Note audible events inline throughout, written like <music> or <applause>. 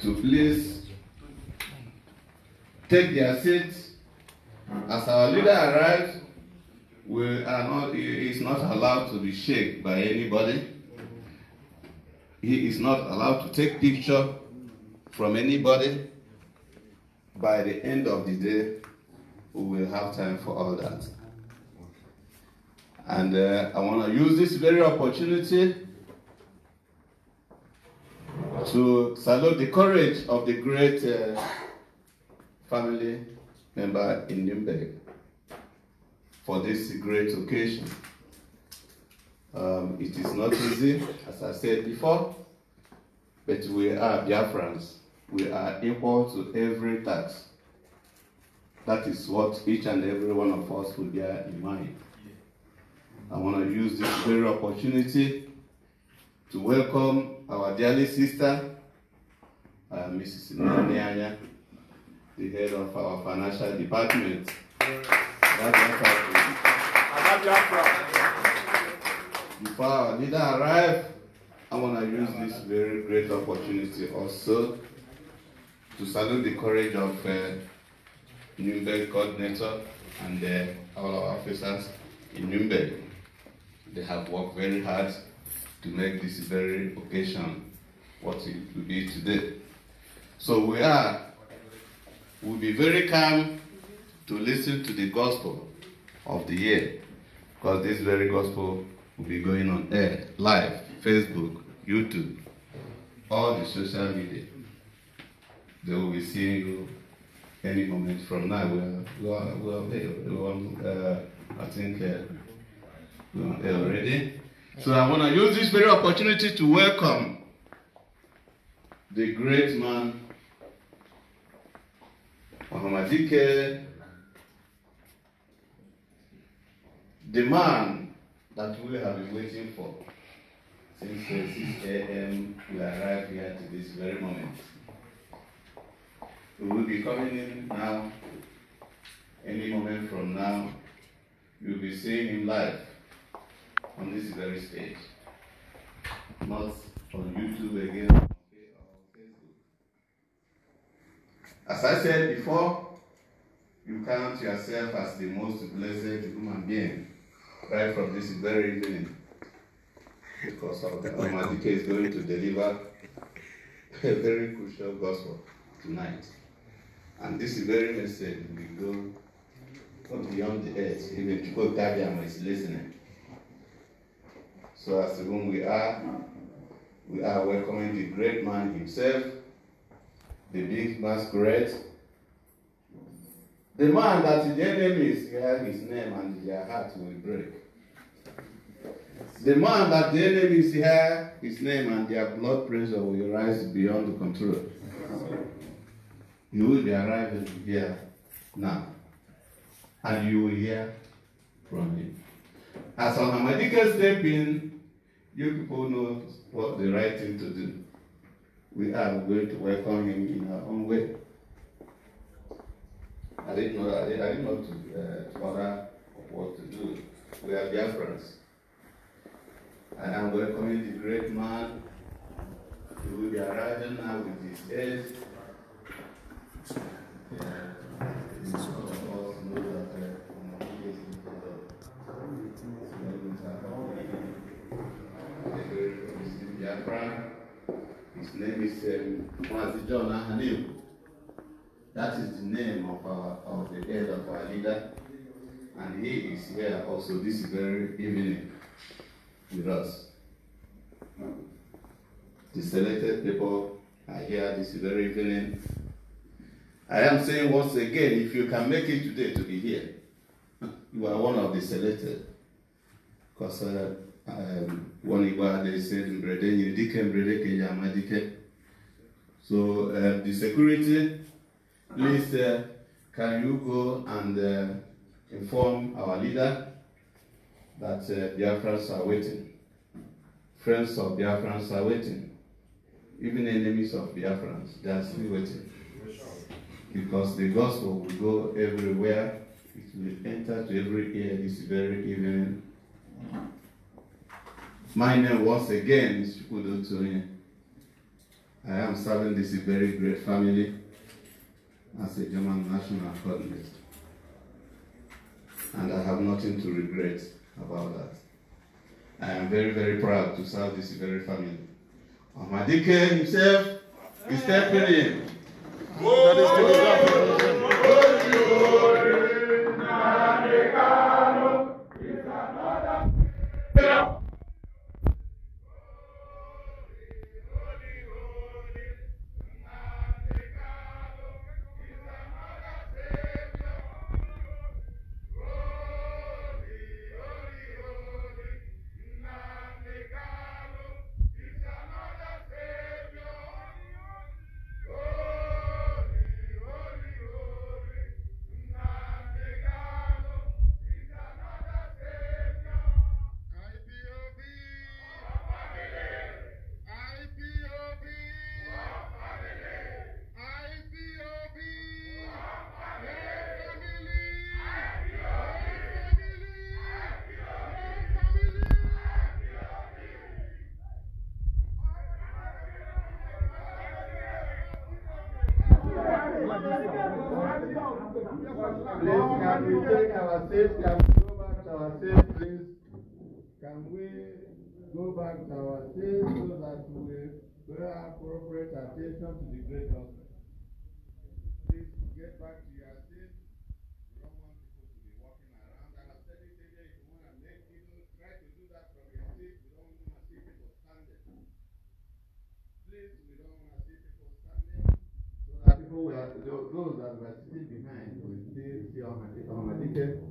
to please take their seats. As our leader arrives, we are not, he is not allowed to be shaken by anybody. He is not allowed to take picture from anybody. By the end of the day, we will have time for all that. And uh, I want to use this very opportunity to salute the courage of the great uh, family member in Nuremberg for this great occasion. Um, it is not easy, as I said before, but we are Biafrans. We are equal to every task. That is what each and every one of us will bear in mind. I want to use this very opportunity to welcome our dearly sister, uh, Mrs. Nyanya, the head of our financial department. Before our leader arrive, I want to use this very great opportunity also to salute the courage of uh, Nuremberg coordinator and uh, all our officers in Nuremberg. They have worked very hard to make this very occasion what it will be today. So we are, will be very calm to listen to the gospel of the year, because this very gospel will be going on air, live, Facebook, YouTube, all the social media. They will be seeing you any moment from now. We are, we are, we are, we are uh, I think uh, we are already. So I want to use this very opportunity to welcome the great man, Muhammadike, the man that we have been waiting for since 6 a.m. We arrived here to this very moment. We will be coming in now, any moment from now. You'll be seeing him live on this very stage, not on YouTube again or Facebook. As I said before, you count yourself as the most blessed human being right from this very evening because of the Almighty is going to deliver a very crucial gospel tonight. And this very message will go beyond the earth, even to Gabiama is listening. So as to whom we are, we are welcoming the great man himself, the big masquerade, the man that the enemies hear his name and their heart will break. The man that the enemies hear his name and their blood pressure will rise beyond the control. You will be arriving here now. And you will hear from him. As a God step in you people know what the right thing to do. We are going to welcome him in our own way. I didn't know, I didn't, know to, uh, order what to do. We are dear friends. I am welcoming the great man who will be arriving now with his age. Yeah. His name is Mwazi um, John Ahanim. That is the name of our of the head of our leader. And he is here also this very evening with us. The selected people are here this very evening. I am saying once again, if you can make it today to be here, <laughs> you are one of the selected. Because uh, um, one said, Mbrede, So uh, the security, please, uh, can you go and uh, inform our leader that uh, Biafrans are waiting? Friends of Biafrans are waiting. Even enemies of Biafrans, they are still waiting. Because the gospel will go everywhere, it will enter to every ear this very evening. My name once again is Chukwudo Toyin. I am serving this very great family as a German national coordinator. And I have nothing to regret about that. I am very, very proud to serve this very family. Amadike himself is stepping in. Oh, ourselves, can we go back to our safe place? Can we go back to our safe so that we pay appropriate attention to the great gospel? Please get back to your safe. You don't want people to be walking around. And I said it earlier, if you want to make people try to do that from your safe, you don't want to see people standing. Please, we don't want to see people standing. So that people, those that were sitting behind, will still see our Almighty.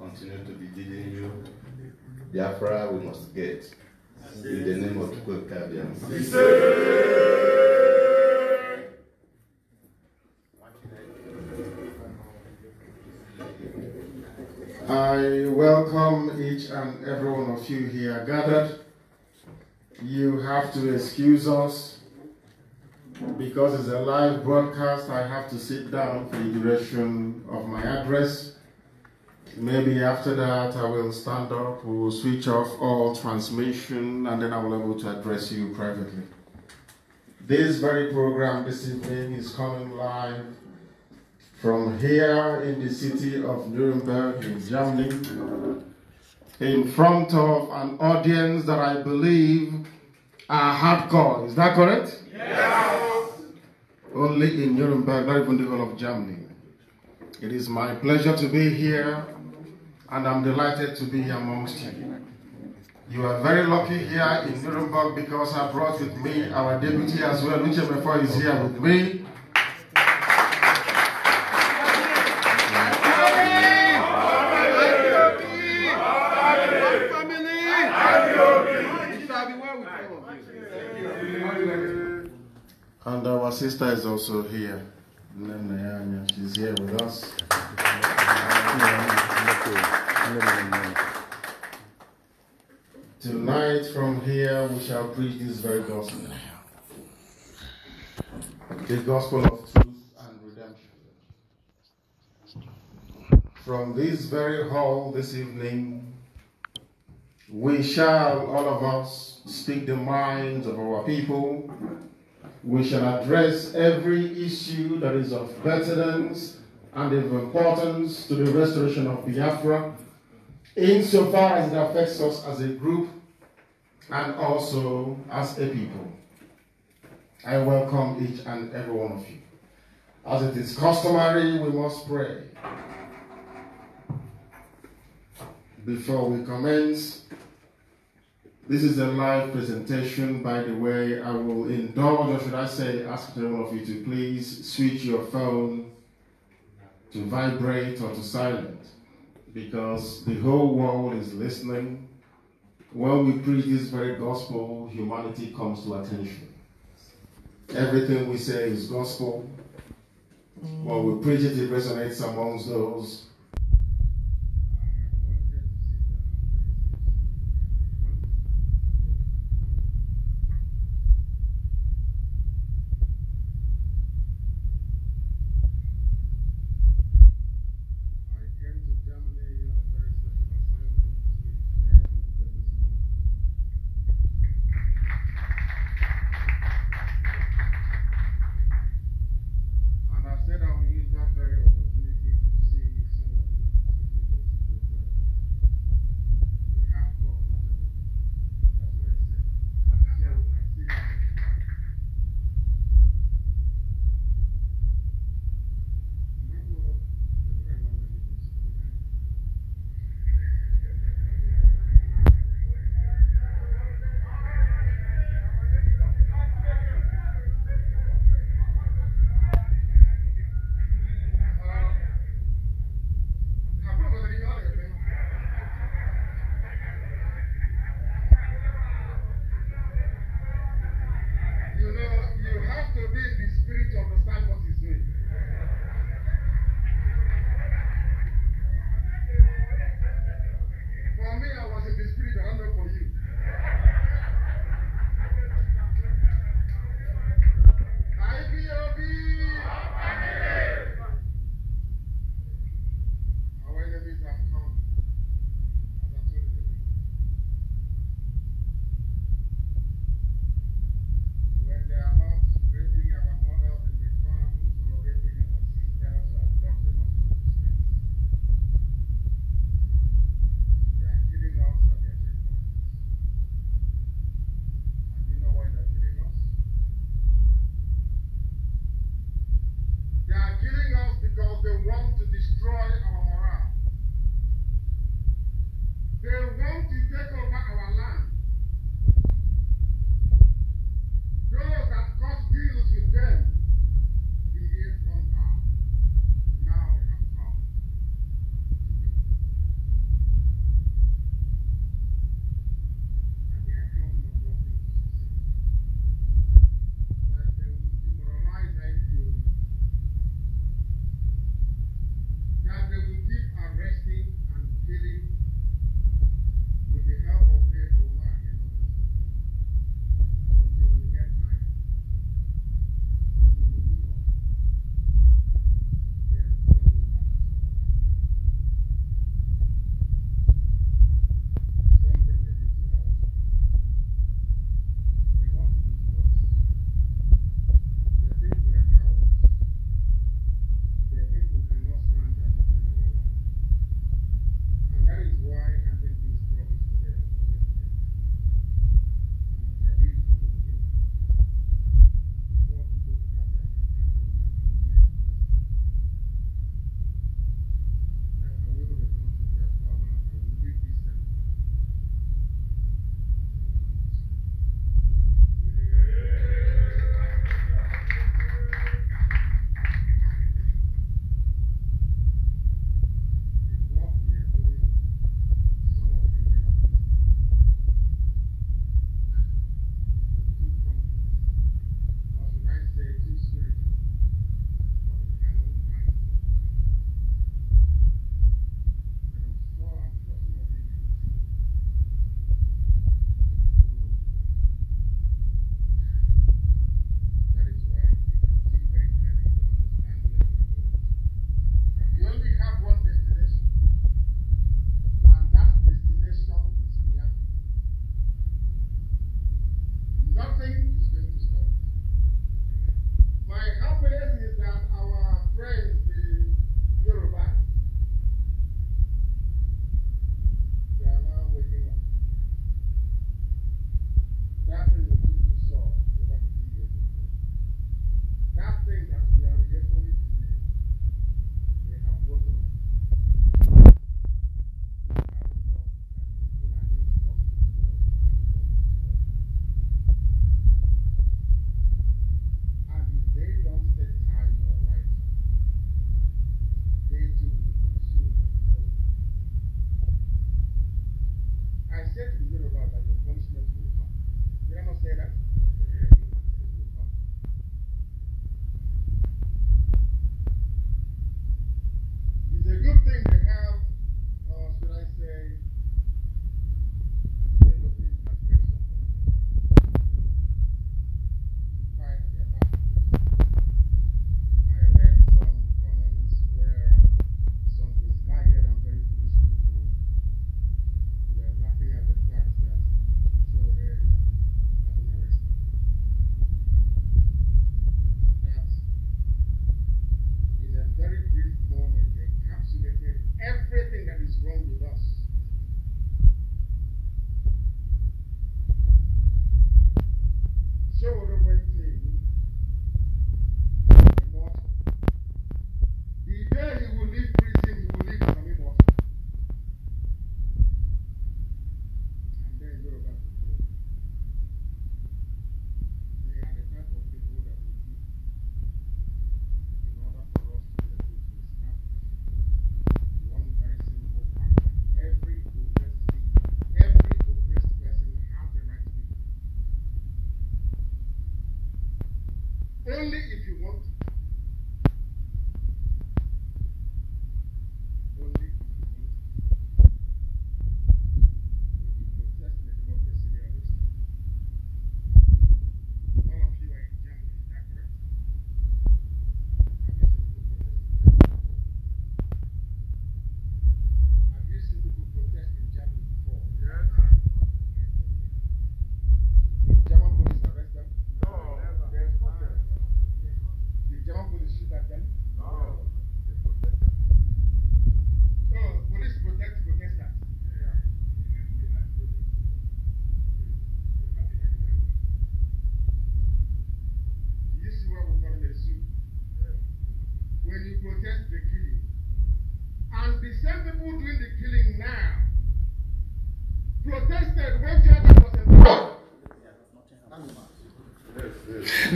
continue to be leading you. Biafra, we must get. In the name of Tukwe I welcome each and every one of you here gathered. You have to excuse us because it's a live broadcast. I have to sit down for the duration of my address. Maybe after that, I will stand up, we will switch off all transmission, and then I will be able to address you privately. This very program this evening is coming live from here in the city of Nuremberg in Germany, in front of an audience that I believe are hardcore. Is that correct? Yes. Only in Nuremberg, not even the whole of Germany. It is my pleasure to be here and I'm delighted to be amongst you. You are very lucky here in Nuremberg because I brought with me our deputy as well, Lucia Mefo is here with me. And our sister is also here. She's here with us. Tonight, from here, we shall preach this very gospel the gospel of truth and redemption. From this very hall this evening, we shall, all of us, speak the minds of our people we shall address every issue that is of pertinence and of importance to the restoration of Biafra, insofar as it affects us as a group and also as a people. I welcome each and every one of you. As it is customary, we must pray. Before we commence, this is a live presentation, by the way. I will indulge, or should I say, ask all of you to please switch your phone to vibrate or to silent because the whole world is listening. When we preach this very gospel, humanity comes to attention. Everything we say is gospel. When we preach it, it resonates amongst those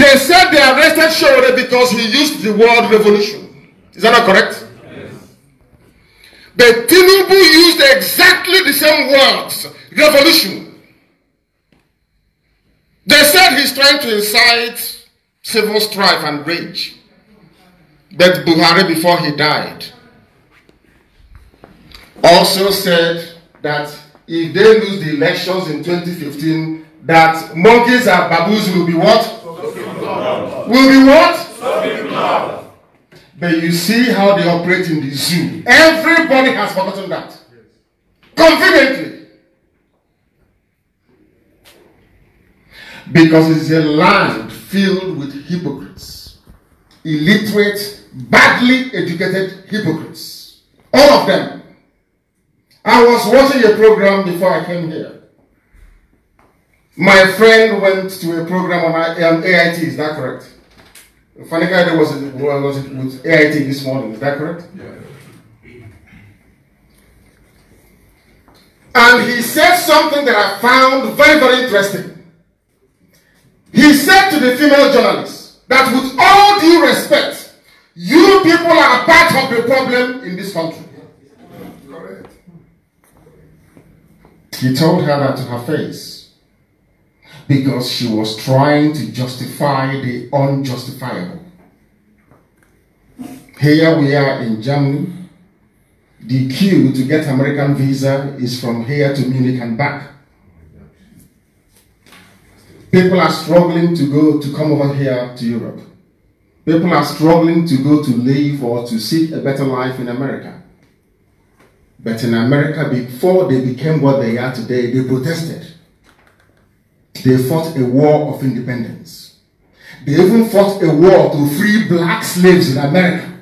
They said they arrested Shore because he used the word revolution. Is that not correct? Yes. But Tinubu used exactly the same words, revolution. They said he's trying to incite civil strife and rage. But Buhari, before he died, also said that if they lose the elections in 2015, that monkeys and baboons will be what? will be what? But you see how they operate in the zoo. Everybody has forgotten that. Confidently. Because it's a land filled with hypocrites. Illiterate, badly educated hypocrites. All of them. I was watching a program before I came here. My friend went to a program on AIT, is that correct? Fanika was it, was it with AIT this morning, is that correct? Yeah. And he said something that I found very, very interesting. He said to the female journalist that with all due respect, you people are part of the problem in this country. He told her that to her face because she was trying to justify the unjustifiable. Here we are in Germany. The queue to get American visa is from here to Munich and back. People are struggling to go to come over here to Europe. People are struggling to go to live or to seek a better life in America. But in America, before they became what they are today, they protested. They fought a war of independence. They even fought a war to free black slaves in America.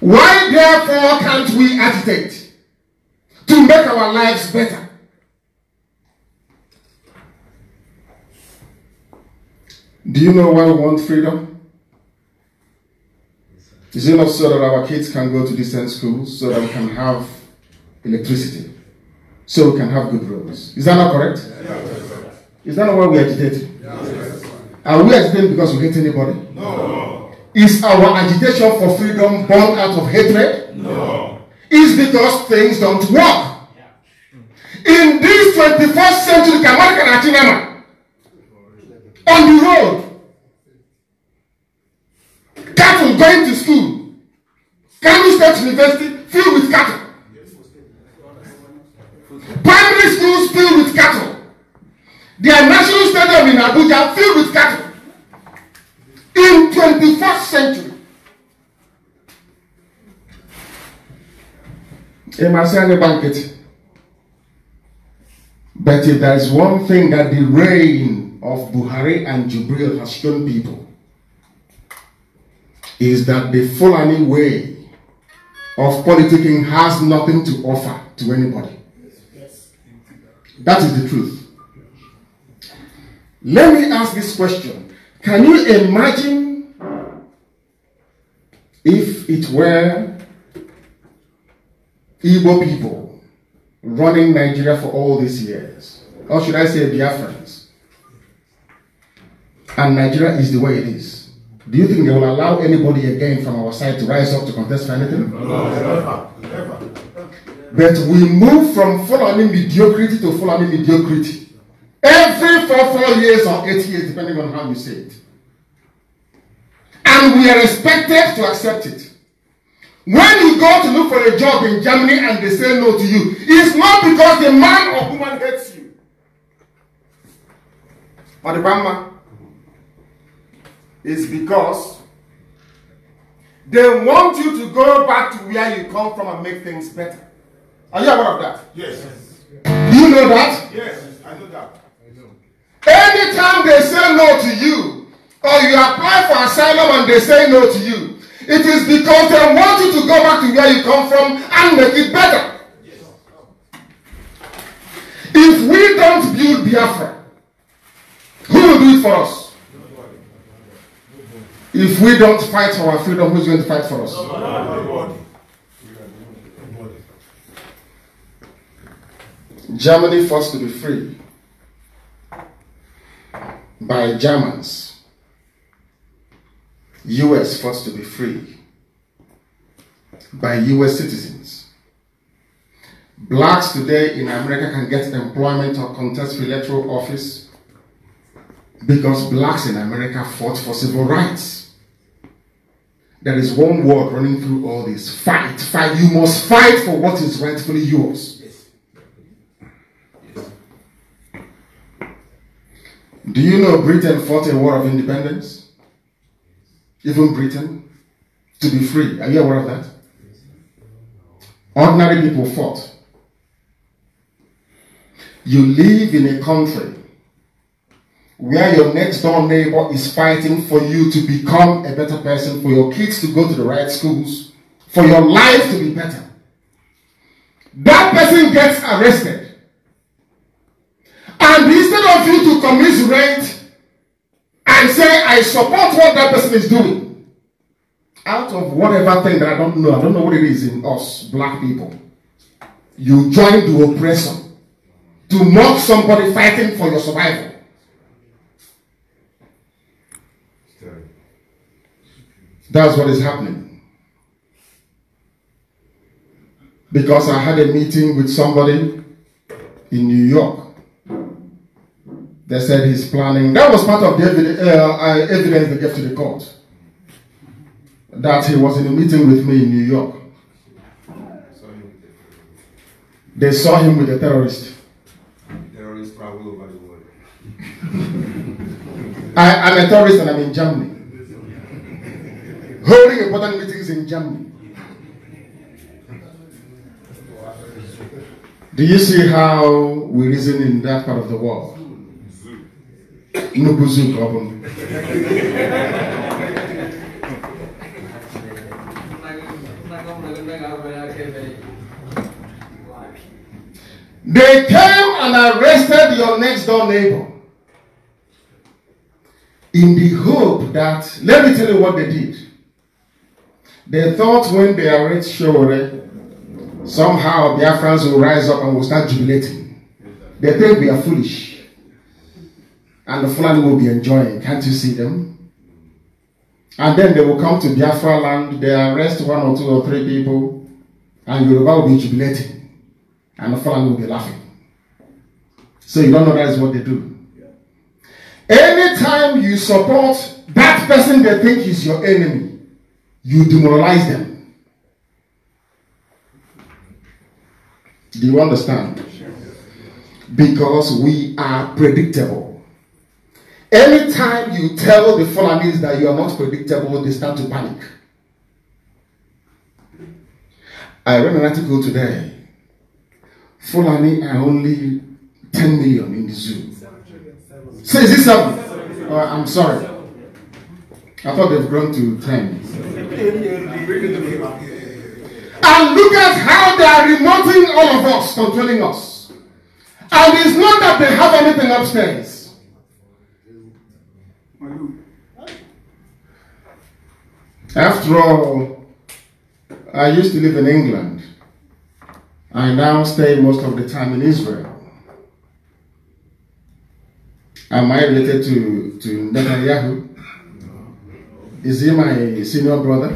Why therefore can't we agitate to make our lives better? Do you know why we want freedom? Is it not so that our kids can go to decent schools so that we can have electricity? so we can have good roads. Is that not correct? Is that not why we agitate? Are we agitating because we hate anybody? No. Is our agitation for freedom born out of hatred? No. Is because things don't work. In this 21st century, Kamari Kanachinama, on the road, cattle going to school, Kano State University filled with cattle. Primary schools filled with cattle. Their national stadium in Abuja filled with cattle. In 21st century. my Marciani banquet. But if there is one thing that the reign of Buhari and Jubril has shown people, is that the Fulani way of politicking has nothing to offer to anybody. That is the truth. Let me ask this question. Can you imagine if it were Igbo people running Nigeria for all these years? Or should I say Biafrans? And Nigeria is the way it is. Do you think they will allow anybody again from our side to rise up to contest for anything? No, never. But we move from following mediocrity to following mediocrity. Every four, four years or eight years, depending on how you say it. And we are expected to accept it. When you go to look for a job in Germany and they say no to you, it's not because the man or woman hates you. Or the grandma. It's because they want you to go back to where you come from and make things better. Are you aware of that? Yes. Do you know that? Yes, I know that. I know. Anytime they say no to you, or you apply for asylum and they say no to you, it is because they want you to go back to where you come from and make it better. If we don't build Biafra, who will do it for us? If we don't fight for our freedom, who's going to fight for us? Nobody. Germany forced to be free by Germans. US forced to be free by US citizens. Blacks today in America can get employment or contest for electoral office because blacks in America fought for civil rights. There is one word running through all this fight, fight. You must fight for what is rightfully yours. Do you know Britain fought a war of independence? Even Britain? To be free. Are you aware of that? Ordinary people fought. You live in a country where your next door neighbor is fighting for you to become a better person, for your kids to go to the right schools, for your life to be better. That person gets arrested. And instead of you to commiserate and say, I support what that person is doing, out of whatever thing that I don't know, I don't know what it is in us, black people, you join the oppressor to mock somebody fighting for your survival. That's what is happening. Because I had a meeting with somebody in New York they said he's planning. That was part of the evidence, uh, evidence they gave to the court. That he was in a meeting with me in New York. They saw him with a terrorist. Terrorists travel over the world. <laughs> I, am a terrorist and I'm in Germany. Holding important meetings in Germany. Do you see how we reason in that part of the world? They came and arrested your next door neighbor in the hope that, let me tell you what they did. They thought when they arrest Shore, somehow their friends will rise up and will start jubilating. They think we are foolish and the Fulani will be enjoying. Can't you see them? And then they will come to Biafra land, they arrest one or two or three people, and Yoruba will be jubilating, and the Fulani will be laughing. So you don't know that is what they do. Anytime you support that person they think is your enemy, you demoralize them. Do you understand? Because we are predictable. Anytime you tell the Fulanese that you are not predictable, they start to panic. I read an article today. Fulani are only 10 million in the zoo. Say, is this something? Oh, uh, I'm sorry. I thought they've grown to 10. And look at how they are remoting all of us, controlling us. And it's not that they have anything upstairs. After all, I used to live in England. I now stay most of the time in Israel. Am I related to, to Netanyahu? Is he my senior brother?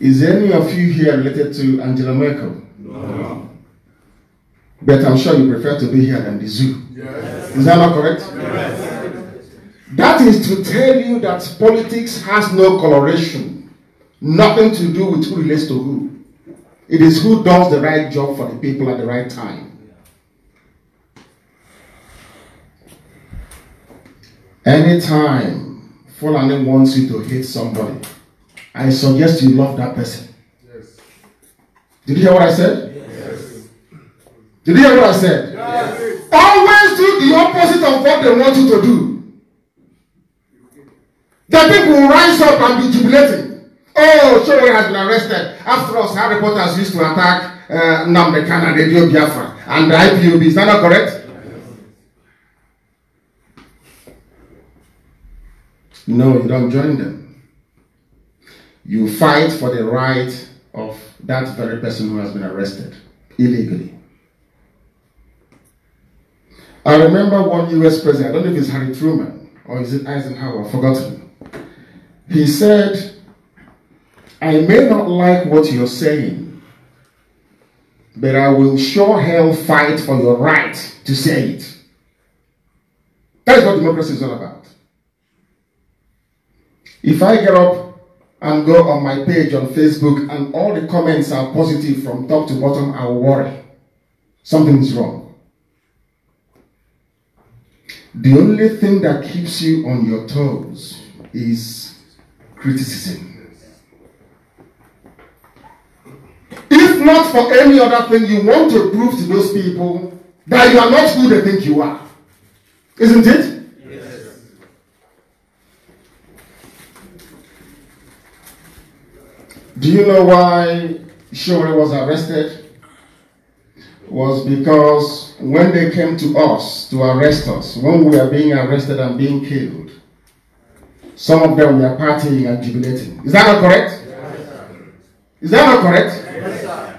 Is any of you here related to Angela Merkel? No. But I'm sure you prefer to be here than the zoo. Yes. Is that not correct? That is to tell you that politics has no coloration, nothing to do with who relates to who. It is who does the right job for the people at the right time. Anytime Fulani wants you to hate somebody, I suggest you love that person. Yes. Did you hear what I said? Yes. Did you hear what I said? Yes. Always do the opposite of what they want you to do. The people will rise up and be jubilating. Oh, Showe has been arrested. After us, Harry Potter used to attack uh, Namdekan and Radio Biafra and the IPOB. Is that not correct? No, you don't join them. You fight for the right of that very person who has been arrested illegally. I remember one US president, I don't know if it's Harry Truman or is it Eisenhower, I've forgotten. He said, I may not like what you're saying, but I will sure hell fight for your right to say it. That's what democracy is all about. If I get up and go on my page on Facebook and all the comments are positive from top to bottom, I worry. Something is wrong. The only thing that keeps you on your toes is criticism. If not for any other thing, you want to prove to those people that you are not who they think you are. Isn't it? Yes. Do you know why Shore was arrested? Was because when they came to us to arrest us, when we were being arrested and being killed, some of them were partying and jubilating. Is that not correct? Yes, Is that not correct? Yes,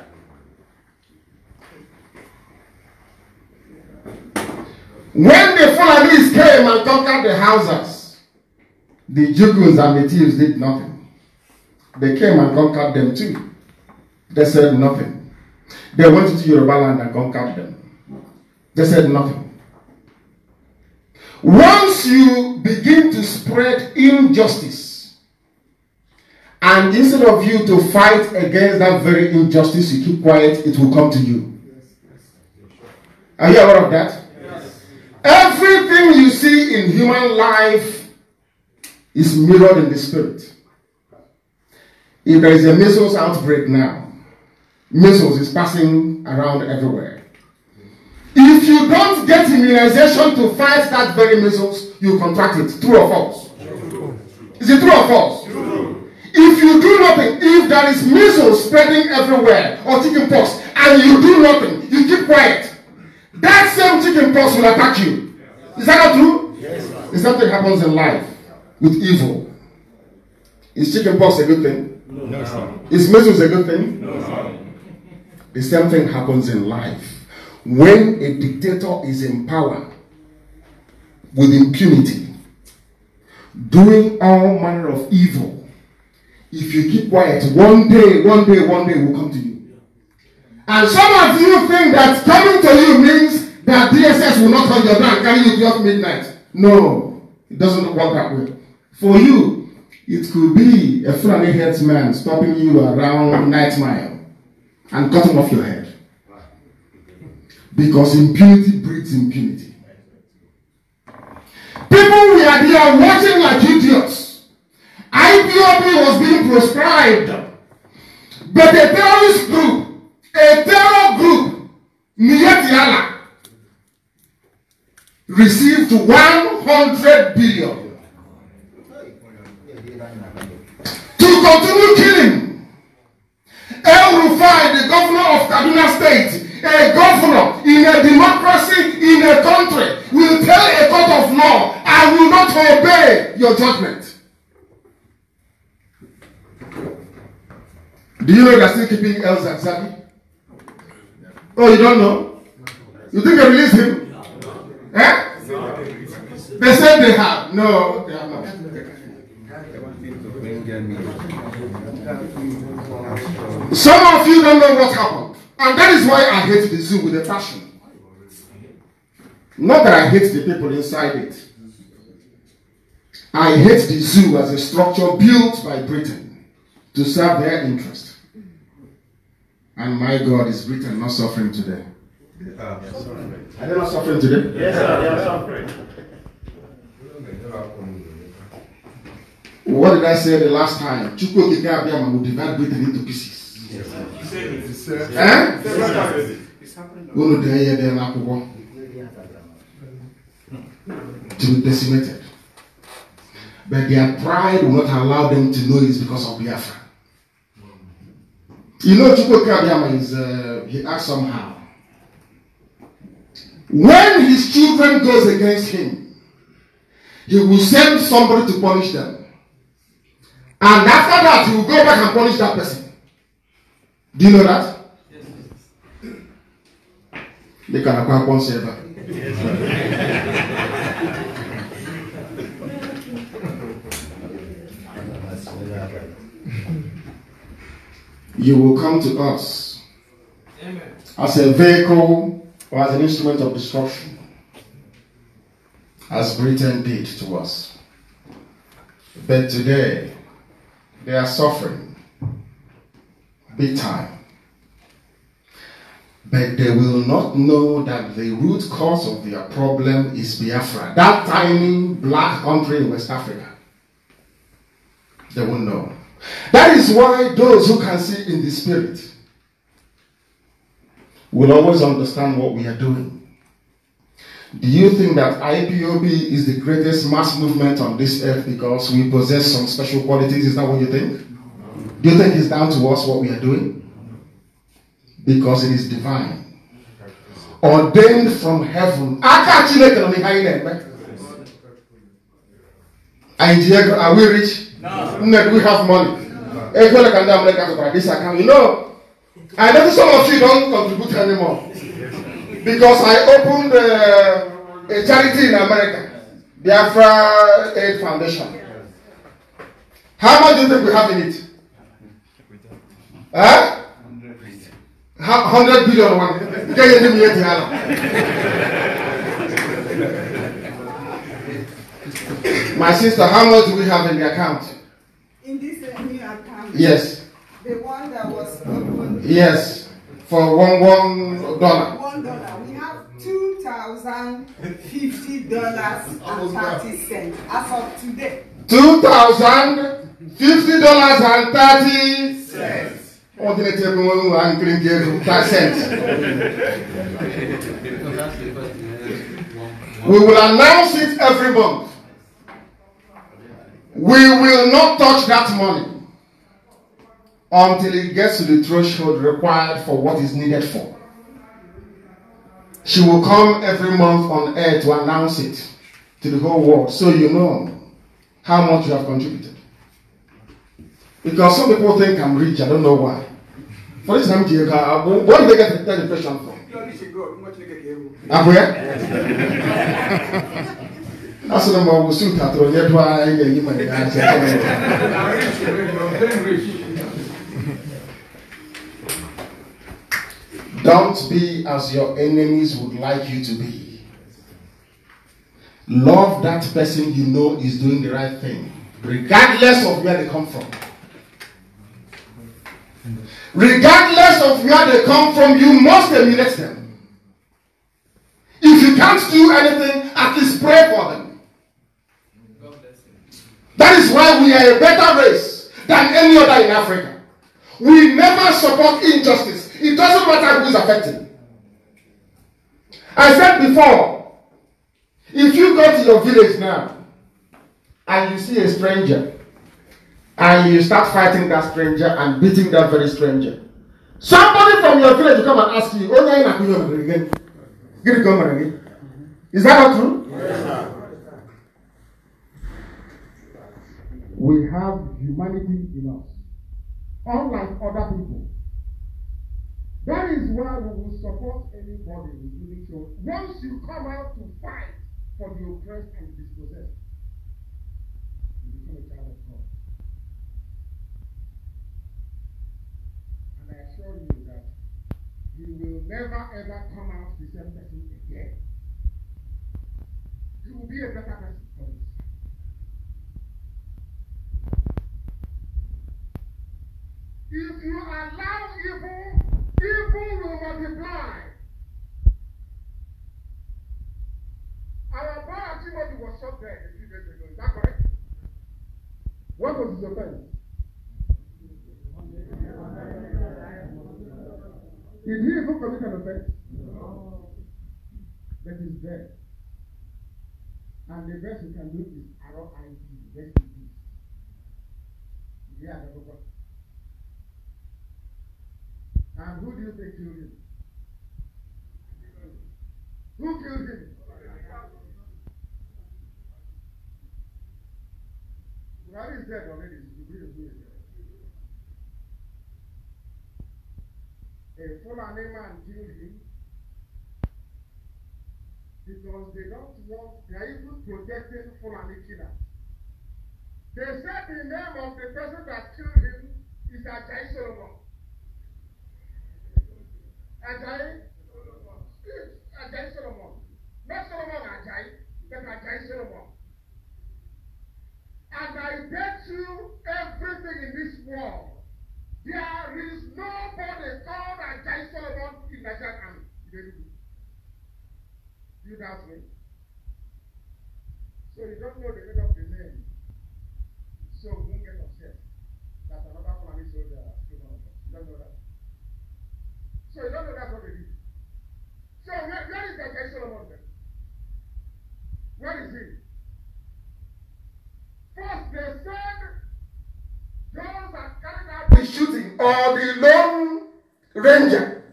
when the Fulanis came and conquered the houses, the Juguns and the thieves did nothing. They came and conquered them too. They said nothing. They went to Yoruba land and conquered them. They said nothing. Once you begin to spread injustice, and instead of you to fight against that very injustice, you keep quiet, it will come to you. Are you aware of that? Everything you see in human life is mirrored in the spirit. If there is a measles outbreak now, measles is passing around everywhere. If you don't get immunization to fight that very measles, you contract it. True or false? Is it true or false? If you do nothing, if there is measles spreading everywhere or chicken pox, and you do nothing, you keep quiet, that same chicken pox will attack you. Is that not true? Yes. Is something happens in life with evil? Is chicken pox a good thing? No. no. Is measles a good thing? No. The same thing happens in life when a dictator is in power with impunity, doing all manner of evil, if you keep quiet, one day, one day, one day will come to you. And some of you think that coming to you means that DSS will not hold your down, carry you just midnight. No, it doesn't work that way. For you, it could be a Fulani headsman stopping you around night mile and cutting off your head. Because impunity breeds impunity. People we are there watching like idiots. IPOB was being proscribed. But a terrorist group, a terror group, Niyetiala, received 100 billion to continue killing. El Rufai, the governor of Kaduna State, a governor in a democracy in a country will tell a court of law, I will not obey your judgment. Do you know they're still keeping El Zazabi? Oh, you don't know? You think they released him? Eh? They said they have. No, they have not. Some of you don't know what happened. And that is why I hate the zoo with a passion. Not that I hate the people inside it. I hate the zoo as a structure built by Britain to serve their interest. And my God, is Britain not suffering today? Are they not suffering today? Yes, sir, they are suffering. What did I say the last time? Chukwu Kikabiyama will divide Britain into pieces. Yes, sir unu dee ihe dị n'akwụkwọ to be decimated but their pride will not allow them to know it's because of Biafra you know Chukwuka Biafra is uh, he acts somehow when his children goes against him he will send somebody to punish them and after that he will go back and punish that person do you know that? Yes. They can one server. you will come to us Amen. as a vehicle or as an instrument of destruction, as Britain did to us. But today, they are suffering big time. But they will not know that the root cause of their problem is Biafra, that tiny black country in West Africa. They won't know. That is why those who can see in the spirit will always understand what we are doing. Do you think that IPOB is the greatest mass movement on this earth because we possess some special qualities? Is that what you think? Do you think it's down to us what we are doing? Because it is divine. Ordained from heaven. are we rich? No. do we have money? No. You know, I know some of you don't contribute anymore. Because I opened uh, a charity in America. Biafra Aid Foundation. How much do you think we have in it? Huh? 100 billion. 100 billion one. Get you My sister, how much do we have in the account? In this uh, new account? Yes. The one that was opened? Yes. For one, one dollar. One dollar. We have two thousand fifty dollars and thirty cents as of today. Two thousand fifty dollars and thirty cents un um um um <laughs> We will announce it every month. We will not touch that money until it gets to the threshold required for what is needed for. She will come every month on air to announce it to the whole world so you know how much you have contributed. Because some people think I'm rich, I don't know why. For this time, where did they get that impression from? Abuya? the what I'm always soon after. Yet, why are you my Don't be as your enemies would like you to be. Love that person you know is doing the right thing, regardless of where they come from. regardless of where they come from, you must emulate them. If you can't do anything, at least pray for them. That is why we are a better race than any other in Africa. We never support injustice. It doesn't matter who's affected. I said before, if you go to your village now and you see a stranger, and you start fighting that stranger and beating that very stranger. Somebody from your village will come and ask you, Oh, no, I'm not again. Give it come again. Is that not true? Yes, we have humanity in us, unlike other people. That is why we will support anybody, including children, once you come out to fight for the oppressed and dispossessed. You become a child of God. I assure you that you will never ever come out the same person again. You will be a better person for this. If you allow evil, evil will multiply. Our brother Timothy was shot dead a few days ago. Is that correct? What was his offense? Is he even commit an offense? No. But he's dead. And the best you can do is R-O-I-D, rest in peace. Yeah, the Papa. And who do you think killed him? Who killed him? Buhari is dead already. You believe me. a Fulani man killed him because they don't want, they are even protecting Fulani killers. They said the name of the person that killed him is Ajay Solomon. Ajayi? Ajay Solomon. Not Solomon Ajay, but Ajay Solomon. And I bet you everything in this world There is nobody called Ajay Solomon in Nigerian army. Very good. Do you doubt me? So you don't know the meaning of the name. So don't get upset that another Fulani soldier has given up. You don't know that. So you don't know that's what they did. So where, where is Ajay Solomon then? Where is he? First they said Those that carried out the shooting or the lone ranger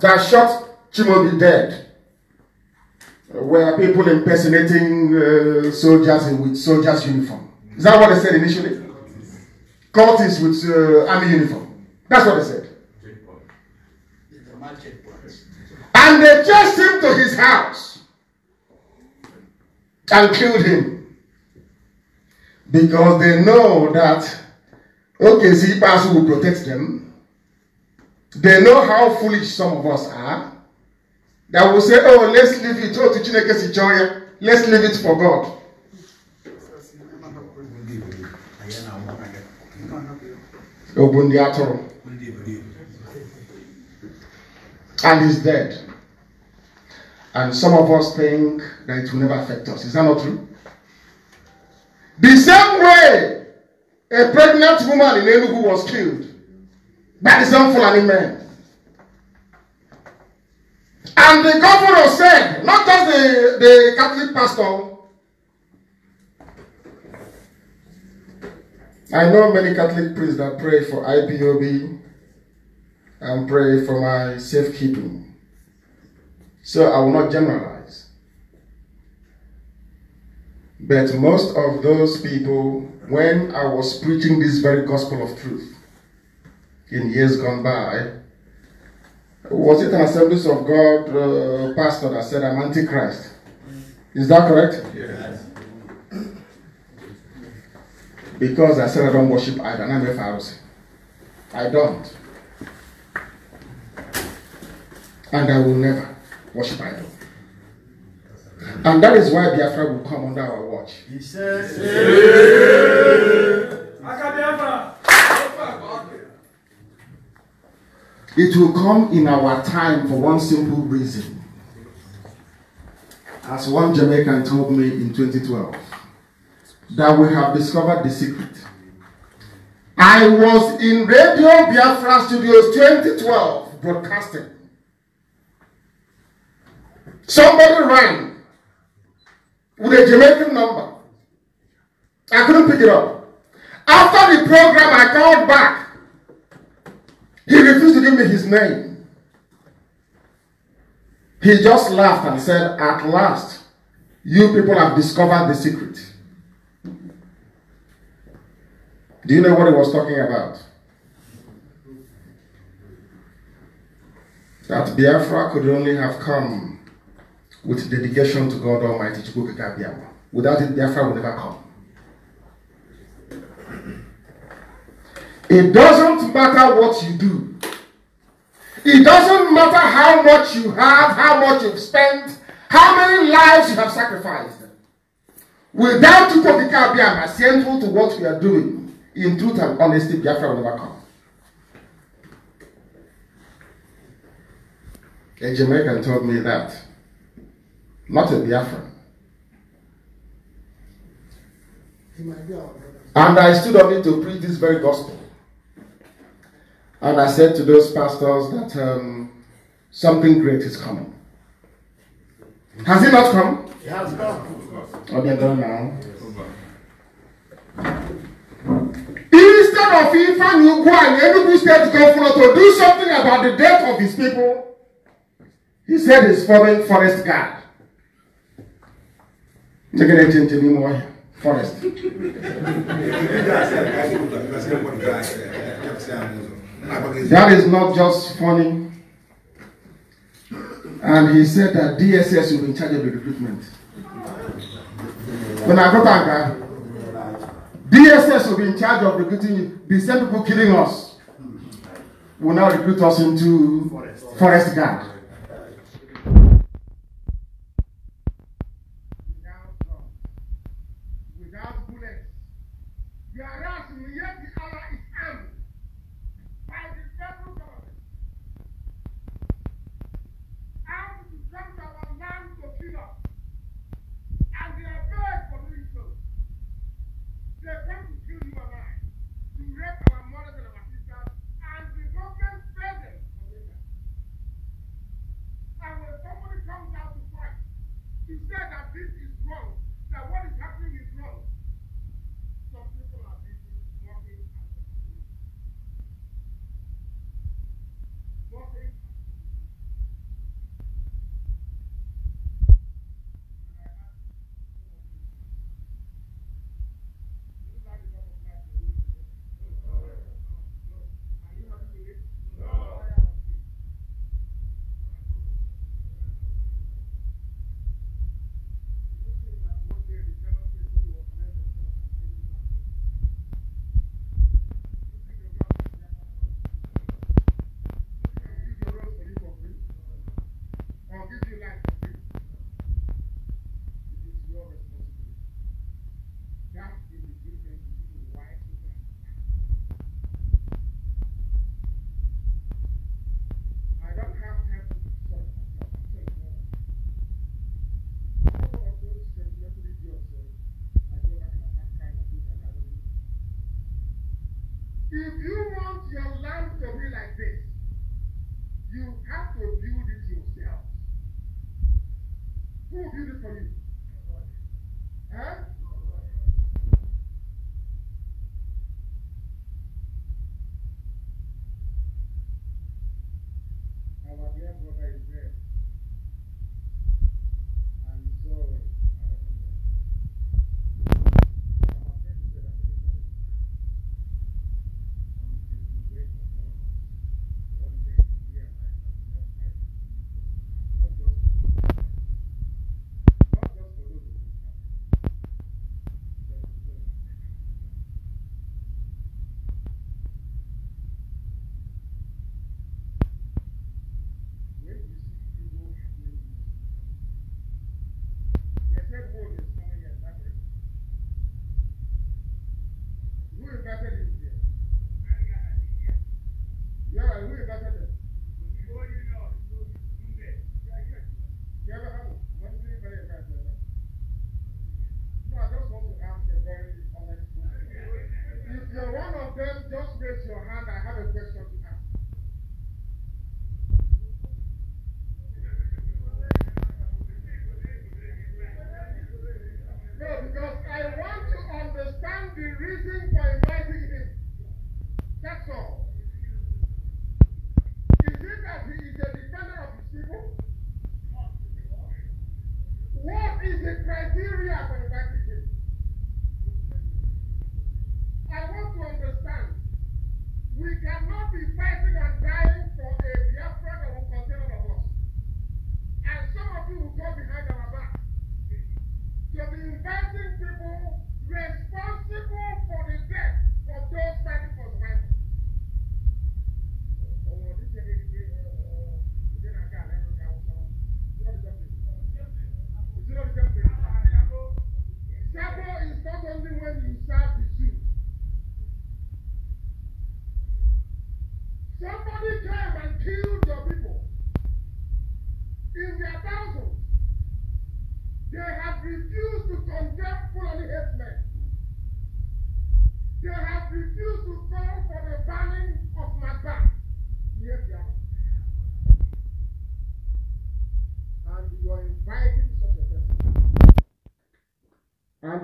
that shot Chimobi dead were people impersonating uh, soldiers in, with soldiers' uniform. Is that what they said initially? Cultists with uh, army uniform. That's what they said. And they chased him to his house and killed him because they know that OKZ Ikpeazu will protect them. They know how foolish some of us are. That will say, oh, let's leave it. Oh, to Chineke Sichoya. Let's leave it for God. Obundi Atoro. And he's dead. And some of us think that it will never affect us. Is that not true? The same way A pregnant woman in Enugu was killed by the same Fulani men. And the governor said, not just the, the Catholic pastor, I know many Catholic priests that pray for IPOB and pray for my safekeeping. So I will not generalize. But most of those people, when I was preaching this very gospel of truth in years gone by, was it an Assemblies of God uh, pastor that said, I'm Antichrist? Is that correct? Yes. Because I said I don't worship idols. I'm a Pharisee. I don't. And I will never worship idols. And that is why Biafra will come under our watch. He says, It will come in our time for one simple reason. As one Jamaican told me in 2012, that we have discovered the secret. I was in Radio Biafra Studios 2012 broadcasting. Somebody rang with a Jamaican number. I couldn't pick it up. After the program, I called back. He refused to give me his name. He just laughed and said, At last, you people have discovered the secret. Do you know what he was talking about? That Biafra could only have come with dedication to God Almighty to Chukwukekabiyama. Without it, Biafra will never come. It doesn't matter what you do. It doesn't matter how much you have, how much you've spent, how many lives you have sacrificed. Without Chukwukeka Biafra, central to what we are doing, in truth and honesty, Biafra will never come. A Jamaican told me that not a Biafran. And I stood on it to preach this very gospel. And I said to those pastors that um, something great is coming. Has it not come? It has come. Oh, they're gone now. Instead of Ifan Ugwan, Enugu State Governor, to do something about the death of his people, he said he's foreign forest guard. Take it to be more forest. <laughs> that is not just funny. And he said that DSS will be in charge of the recruitment. When I go back, uh, DSS will be in charge of recruiting The same people killing us will now recruit us into forest, forest guard.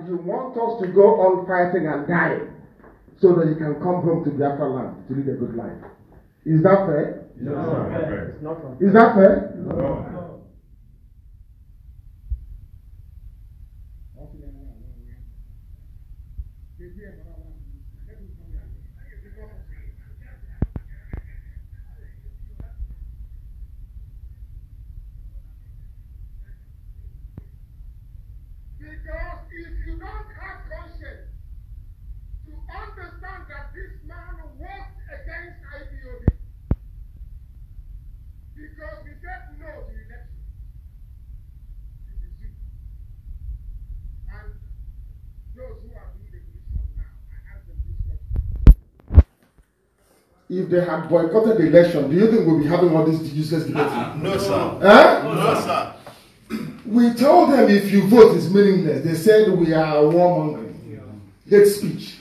you want us to go on fighting and dying so that you can come home to the land to lead a good life. Is that fair? no. It's not fair. Is that fair? if they had boycotted the election, do you think we'll be having all these useless debates? Uh, no, sir. Eh? No, no, sir. We told them if you vote it's meaningless. They said we are warmongering. Yeah. Hate speech.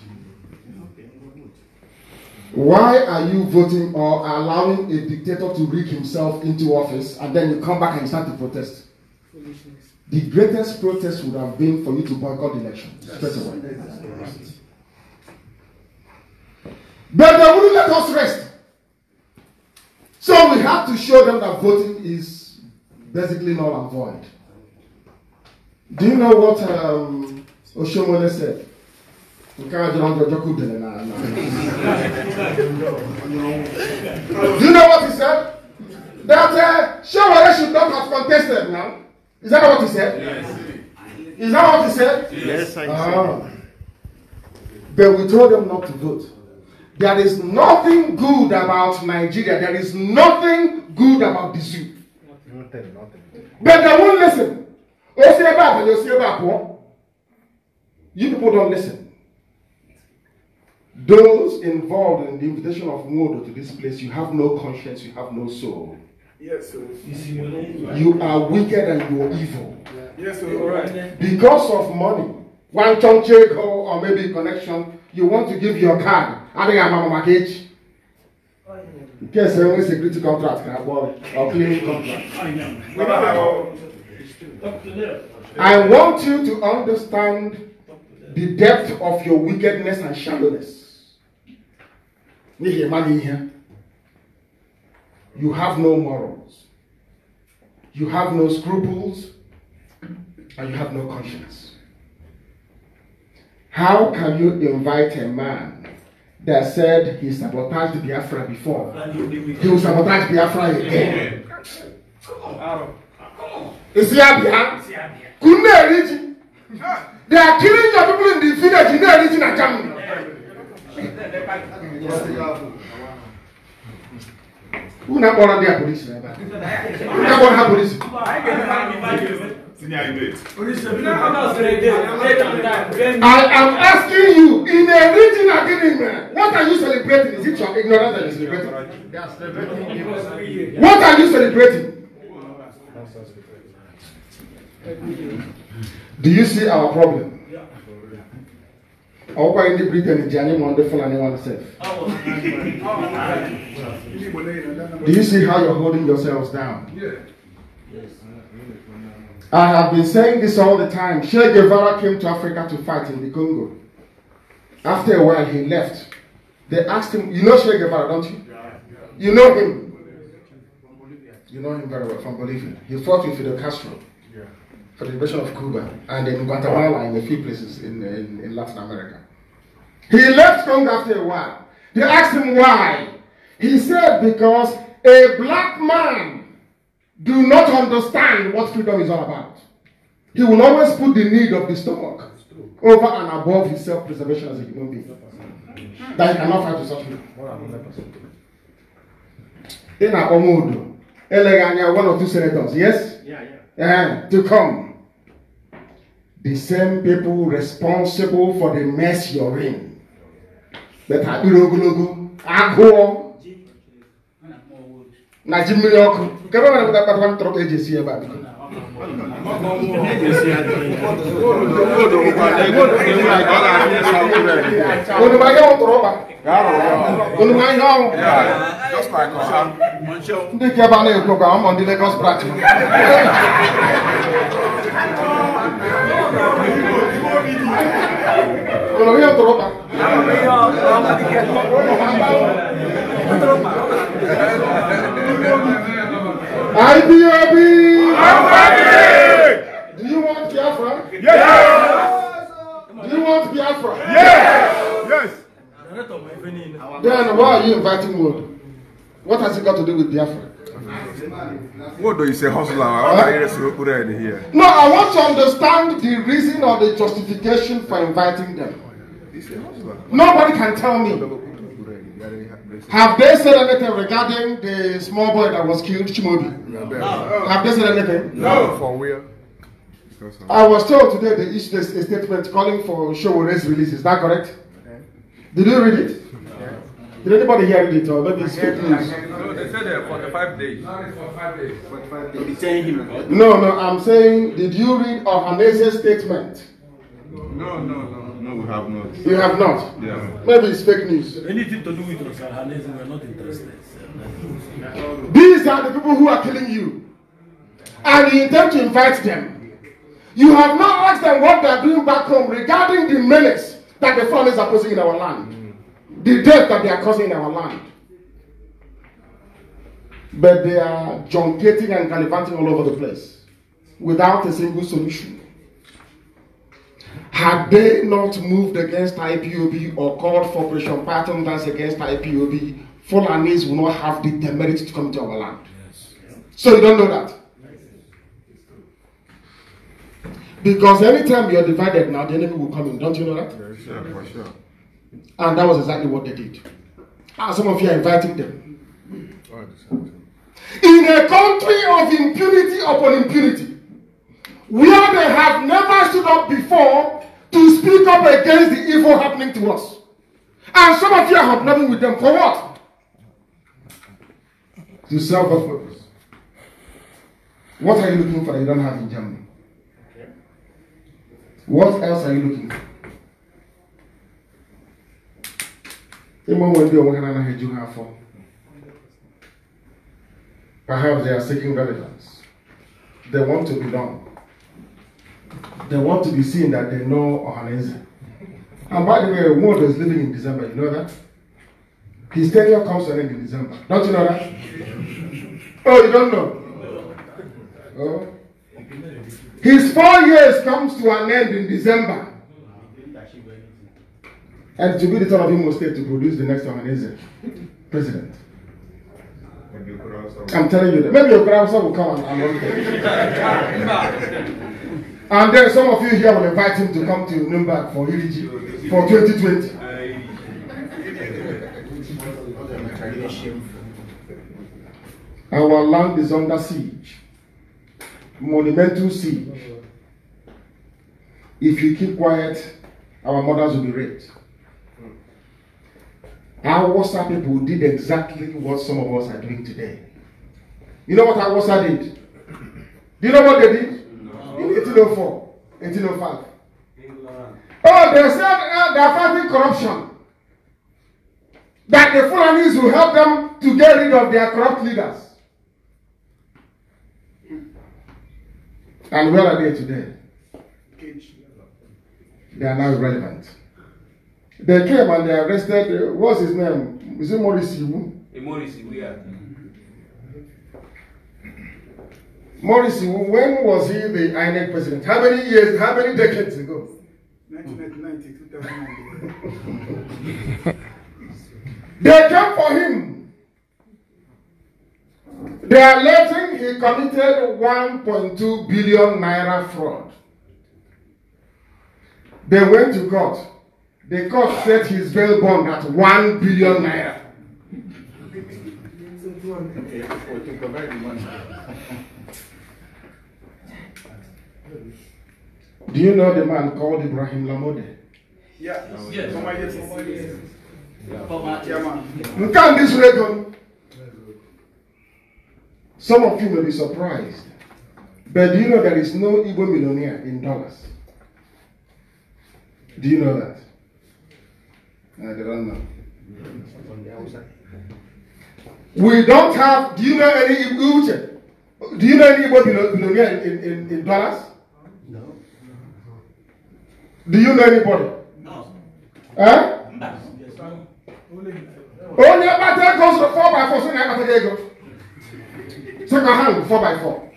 Why are you voting or allowing a dictator to rig himself into office and then you come back and start to protest? The greatest protest would have been for you to boycott the election straight away. But they wouldn't let us rest. So we have to show them that voting is basically null and void. Do you know what um, Oshomole said? Do you know what he said? That uh, Shomole should not have contested now. Is that what he said? Yes. Is that what he said? Yes, I know. Uh, ah. but we told them not to vote. There is nothing good about Nigeria. There is nothing good about the zoo. Nothing, nothing. But they won't listen. You You'll people don't listen. Those involved in the invitation of Modo to this place, you have no conscience, you have no soul. Yes, sir. You are wicked and you are evil. Yes, sir. All right. Because of money, one chunk or maybe connection, you want to give your card I adịghị amama maka echi nke ese nwere sekuriti kọntrakt na agwọ ọklin kọntrakt I want you to understand the depth of your wickedness and shallowness. You have no morals. You have no scruples. And you have no conscience. How can you invite a man that said he sabotaged Biafra before. He will sabotage Biafra again. Is he Abia? Couldn't they reach? They are killing your people in the village. You know, reaching a camp. Who not born their police? Who not born her police? I am asking you, in a region agreement, what are you celebrating? Is it your ignorance that you're celebrating? What are you celebrating? Do you see our problem? ọkwa ndị britain ji anyị ma ndị fulani one self do you see how you're holding yourselves down yeah. yes. I have been saying this all the time. Che Guevara came to Africa to fight in the Congo. After a while, he left. They asked him, You know Che Guevara, don't you? Yeah, yeah. You know him. You know him very well from Bolivia. He fought with Fidel Castro yeah. for the liberation of Cuba and in Guatemala and a few places in, in, in Latin America. He left Congo after a while. They asked him why. He said, Because a black man do not understand what freedom is all about. He will always put the need of the stomach over and above his self preservation as a human being. That he cannot fight to such people. In Akomodo, Elegania, one or two senators, yes? Yeah, yeah. And eh, to come. The same people responsible for the mess you're in. But Abirogulogu, Agor, na ji mmiri ọkụ nke ebe nwere kpakpakpa ntụrụ ka eji esi ebe a biko unu ma ihe ụtụrụ ụkpa unu ma ihe ọnwụ ndị nke ebe a na-ekwu ka ụmụ ndị Lagos branch unu ihe ụtụrụ ụkpa Thank you. IPOB! Do you want Biafra? Yes! yes. Do you want Biafra? Yes! Yes! Then why are you inviting Wood? What has it got to do with Biafra? What do you say, hustler? What are you here? No, I want to understand the reason or the justification for inviting them. Nobody can tell me. Have they said anything regarding the small boy that was killed, Chimobi? No. no. Have they said anything? No. no. For real. I was told today they issued a statement calling for Showore's release. Is that correct? Okay. Did you read it? No. Did anybody hear it or maybe it's fake news? No, they said uh, 45 days. No, it's 45 days. 45 days. him. No, no, I'm saying, did you read Ohanese's statement? No, no, no we have not. You have not? Yeah. Maybe it's fake news. Anything to do with Rosalhanes, we are not interested. These are the people who are killing you. And you intend to invite them. You have not asked them what they are doing back home regarding the menace that the foreigners are posing in our land. The death that they are causing in our land. But they are junketing and gallivanting all over the place without a single solution. Had they not moved against IPOB or called for Operation Pattern Dance against IPOB, Fulanis will not have the temerity to come to our land. Yes. So you don't know that. Because anytime you're divided now, the enemy will come in. Don't you know that? Yes, yeah, for sure. And that was exactly what they did. And ah, some of you are inviting them. In a country of impunity upon impunity, where they have never stood up before to speak up against the evil happening to us. And some of you are hobnobbing with them for what? To serve God's purpose. What are you looking for that you don't have in Germany? What else are you looking for? Perhaps they are seeking relevance. They want to belong they want to be seen that they know Ohanese. And by the way, Ward is living in December, you know that? His tenure comes to an end in December. Don't you know that? oh, you don't know? Oh. His four years comes to an end in December. And to be the son of Imo State to produce the next Ohanese president. I'm telling you that. Maybe your grandson will come and, and <laughs> <laughs> And then some of you here will invite him to come to Nuremberg for UDG for 2020. Our land is under siege, monumental siege. If you keep quiet, our mothers will be raped. Our Wasa people did exactly what some of us are doing today. You know what our Wasa did? Do you know what they did? 1804, 1805. England. Oh, they said uh, they are fighting corruption. That the Fulanis will help them to get rid of their corrupt leaders. And where are they today? They are now irrelevant. They came and they arrested, uh, what's his name? Is it Maurice Iwu? Maurice Iwu, yeah. Morris, when was he the INEC president? How many years, how many decades ago? 1999 2009. they came for him. They are letting he committed 1.2 billion naira fraud. They went to court. The court set his bail bond at 1 billion naira. Do you know the man called Ibrahim Lamode? Yeah. yes. yes. yes. Some of you may be surprised. But do you know there is no Igbo millionaire in dollars? Do you know that? I don't know. We don't have, do you know any Igbo, do you know any Igbo millionaire in, in, in dollars? Do you know anybody? No. Eh? No. Only about that goes to four by four, so now about go. Second hand, four by four.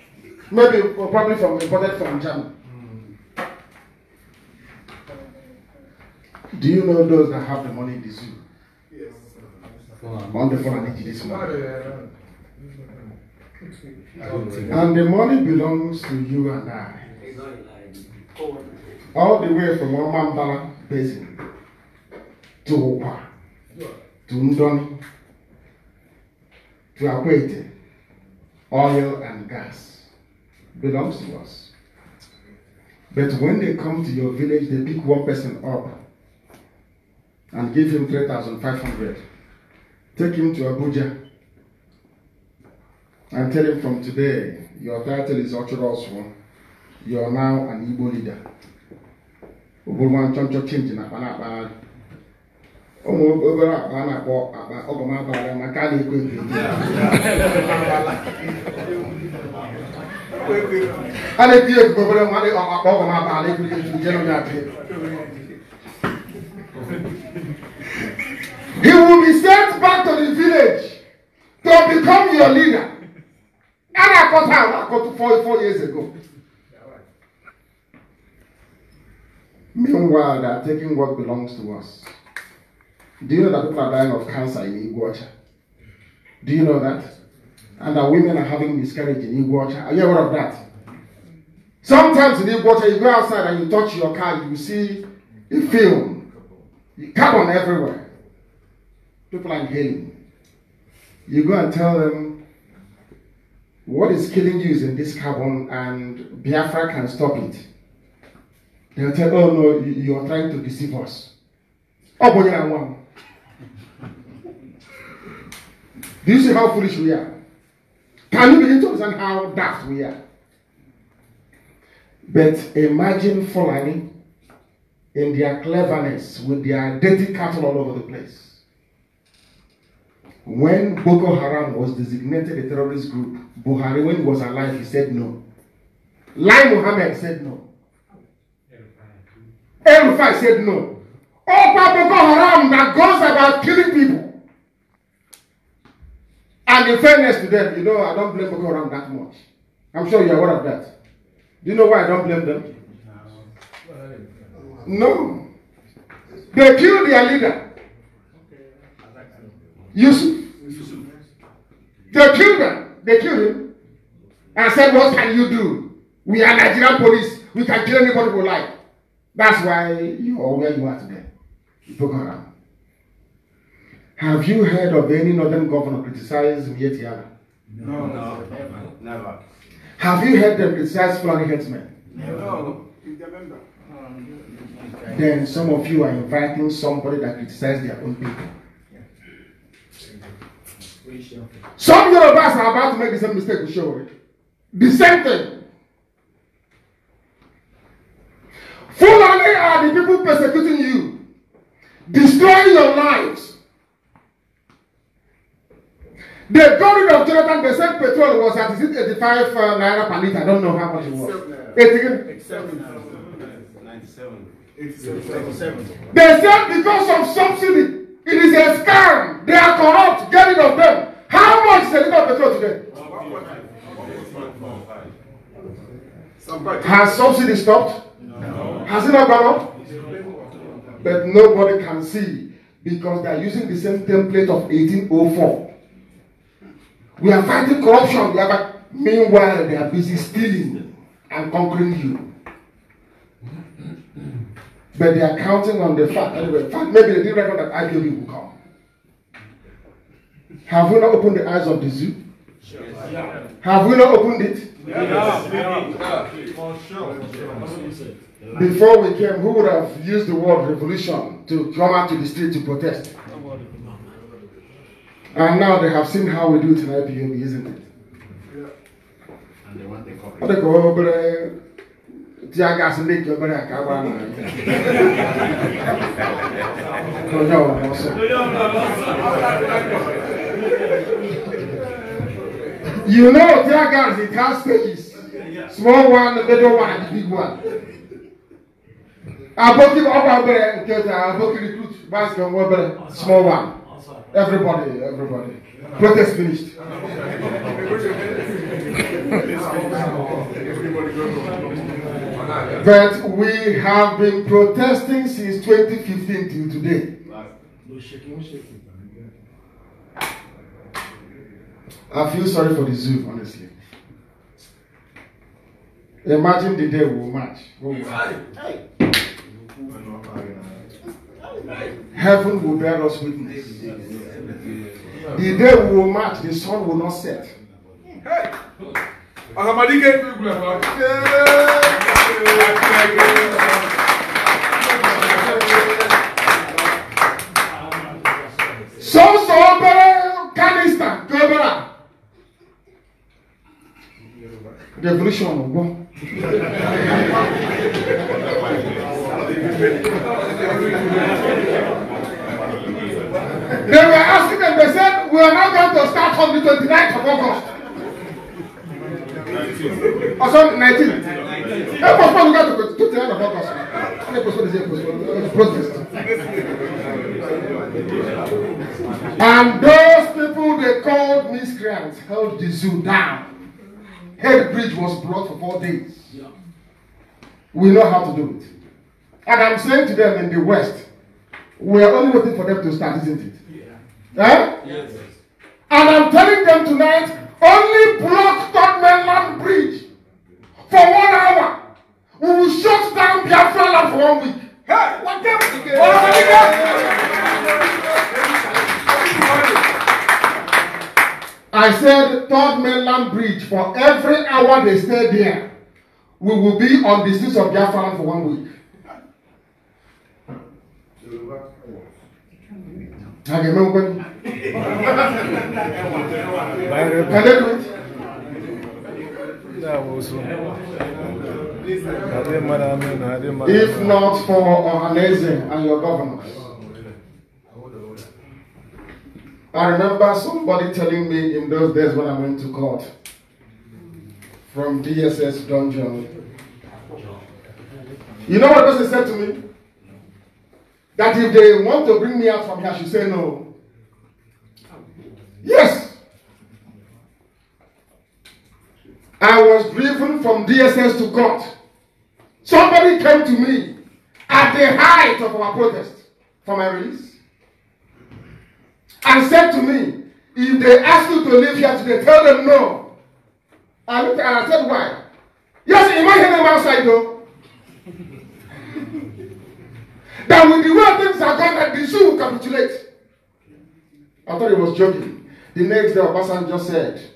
Maybe or uh, probably from imported from Germany. Do you know those that have the money in the zoo? Yes. on the phone, I need this morning. And the money belongs to you and I all the way from Omambala Basin to Opa, to Ndoni, to Akwete, oil and gas belongs to us. But when they come to your village, they pick one person up and give him 3,500. Take him to Abuja and tell him from today, your title is Ochoros One. You are now an Igbo leader. ụbụrụ nwa nchọnchọ chinchi na akpa na-akpagharị ụmụ obere akpa a na-akpọ akpa ọgọmabara maka a na-ekwe a na-ekiri ekwu obere nwa dị akpa ọgọmabara ekiri ekiri nje nọ na-atị He will be sent back to the village to become your leader. And I caught her, I caught four, four years ago. Meanwhile, they are taking what belongs to us. Do you know that people are dying of cancer in Iguacha? Do you know that? And that women are having miscarriage in Iguacha? Are you aware of that? Sometimes in Iguacha, you go outside and you touch your car, you see a film, carbon everywhere. People are inhaling. You go and tell them, what is killing you is in this carbon, and Biafra can stop it. They'll tell, oh no, you, you are trying to deceive us. Oh, boy, I want. Do you see how foolish we are? Can you begin to understand how daft we are? But imagine Fulani in their cleverness with their dirty cattle all over the place. When Boko Haram was designated a terrorist group, Buhari, when he was alive, he said no. Lai Mohammed said no. El Rufai said no. people Boko Haram that goes about killing people. And in fairness to them, you know, I don't blame Boko Haram that much. I'm sure you're aware of that. Do you know why I don't blame them? No. They killed their leader. Yusuf. They killed him. They killed him. And said, what can you do? We are Nigerian police. We can kill anybody we like. That's why you are where you are today. Boko Haram. Have you heard of any northern governor criticising yet No, no, never. never. Have you heard them criticize Fulani headsmen? me? No. Then some of you are inviting somebody that criticizes their own people. Some Yorubas are about to make the same mistake with Shori. Eh? The same thing. Fulani are the people persecuting you, destroying your lives. The glory of Jonathan, the said petrol was at 85 uh, naira per litre. I don't know how much it was. 87. 87. They said because of subsidy, it is a scam. They are corrupt. Get rid of them. How much is a litre of petrol today? Has subsidy stopped? Has it not gone up? But nobody can see because they are using the same template of 1804. We are fighting corruption. We are, meanwhile, they are busy stealing and conquering you. But they are counting on the fact that fact maybe they didn't reckon that IPOB will come. Have we not opened the eyes of the zoo? Have we not opened it? Yes. yes. yes. For sure. For sure. Before we came, who would have used the word revolution to come out to the street to protest? And now they have seen how we do it in IPM, isn't it? And they want the coverage. Oh, you know, tear gas, it has stages. Small one, the middle one, and the big one. Aboki ọba obere nke ta Aboki recruit basket nwa obere small one. Everybody, everybody. Protest finished. but we have been protesting since 2015 till today. I feel sorry for the zoo, honestly. Imagine the day we'll march. We'll march. Hey. Heaven will bear us witness. The day we will march, the sun will not set. So Some sober canister, Gobera. Revolution of God. They were asking and they said, We are not going to start on the 29th of August. Or sorry, 19th. They postponed to to 29th of August. They postponed the protest. And those people they called miscreants held the zoo down. Head bridge was blocked for four days. Yeah. We know how to do it. And I'm saying to them in the West, we are only waiting for them to start, isn't it? Yeah. Eh? Yes. And I'm telling them tonight, only block that Land bridge for one hour. We will shut down Biafra land for one week. Hey, what the? I said third mainland bridge for every hour they stay there we will be on the streets of Biafra for one week. Can they do it? If not for Ohaneze and your governors. I remember somebody telling me in those days when I went to court from DSS dungeon. You know what person said to me? That if they want to bring me out from here, she said say no. Yes. I was driven from DSS to court. Somebody came to me at the height of our protest for my release. and said to me, If they ask you to live here today, tell them no. I looked at her and I said, Why? Yes, you might hear them outside though. <laughs> that with the way things are going, that the zoo will capitulate. I thought he was joking. The next day, person just said,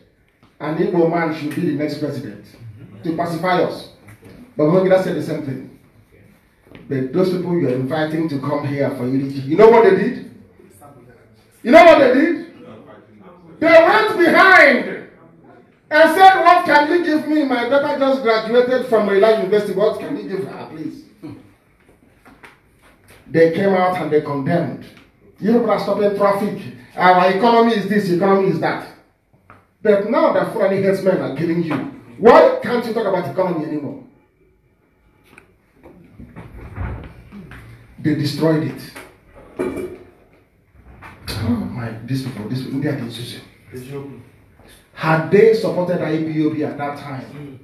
An Igbo man should be the next president to pacify us. But Mongida said the same thing. But those people you are inviting to come here for unity, you know what they did? You know what they did? They went behind and said, What can you give me? My daughter just graduated from a University. What can you give her, please? They came out and they condemned. Europe has stopped traffic. Our economy is this, economy is that. But now the foreign headsmen are killing you. Why can't you talk about economy anymore? They destroyed it my this people, oh, this people, India Had they supported IPOB at that time,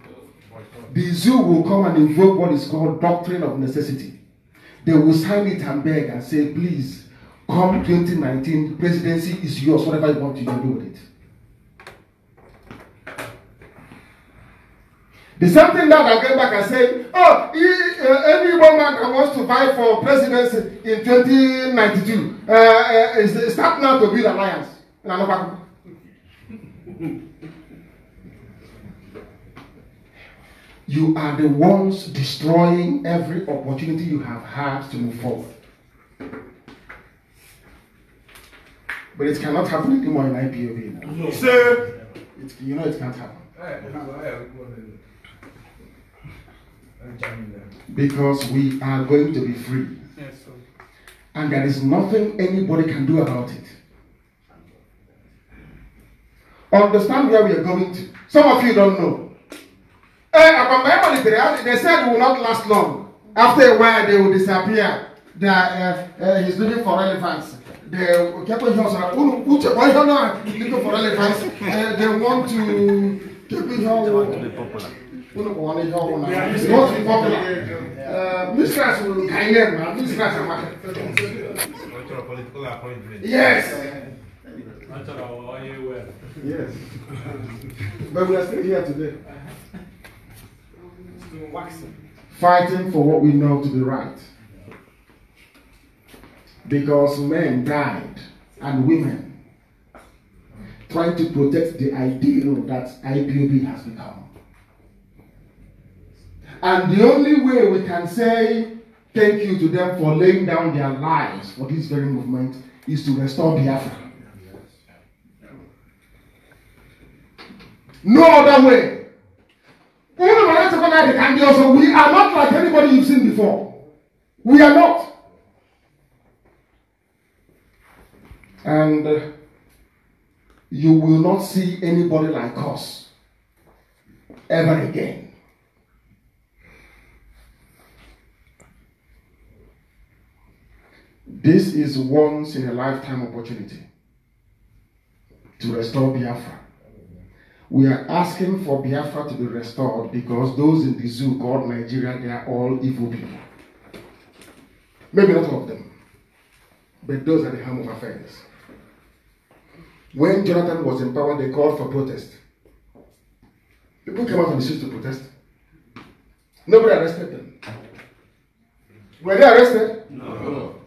the zoo will come and invoke what is called doctrine of necessity. They will sign it and beg and say, please, come 2019, presidency is yours, whatever you want to do with it. The same thing that I came back and said, oh, he, uh, any woman that wants to fight for presidency in 2092 uh, uh, is, is not now to build alliance. You are the ones destroying every opportunity you have had to move forward. But it cannot happen anymore in IPOB No, sir. It, you know it can't happen. Hey, eh, Because we are going to be free. Yes, and there is nothing anybody can do about it. Understand where we are going to. Some of you don't know. Eh, they said it will not last long. After a while, they will disappear. They are, uh, uh, he's looking for elephants. They, looking for Uh, they want to keep it உனக்கு வாணிஜ் ஆகும் மோஸ்ட் Yes. <laughs> but we are still here today. Fighting for what we know to be right. Because men died and women trying to protect the ideal that IPOB has become. And the only way we can say thank you to them for laying down their lives for this very movement is to restore Biafra. No other way. we are not like anybody you've seen before. We are not. And uh, you will not see anybody like us ever again. This is once in a lifetime opportunity to restore Biafra. We are asking for Biafra to be restored because those in the zoo called Nigeria, they are all evil people. Maybe not all of them, but those are the helm of affairs. When Jonathan was in power, they called for protest. People came out on the streets to protest. Nobody arrested them. Were they arrested? No.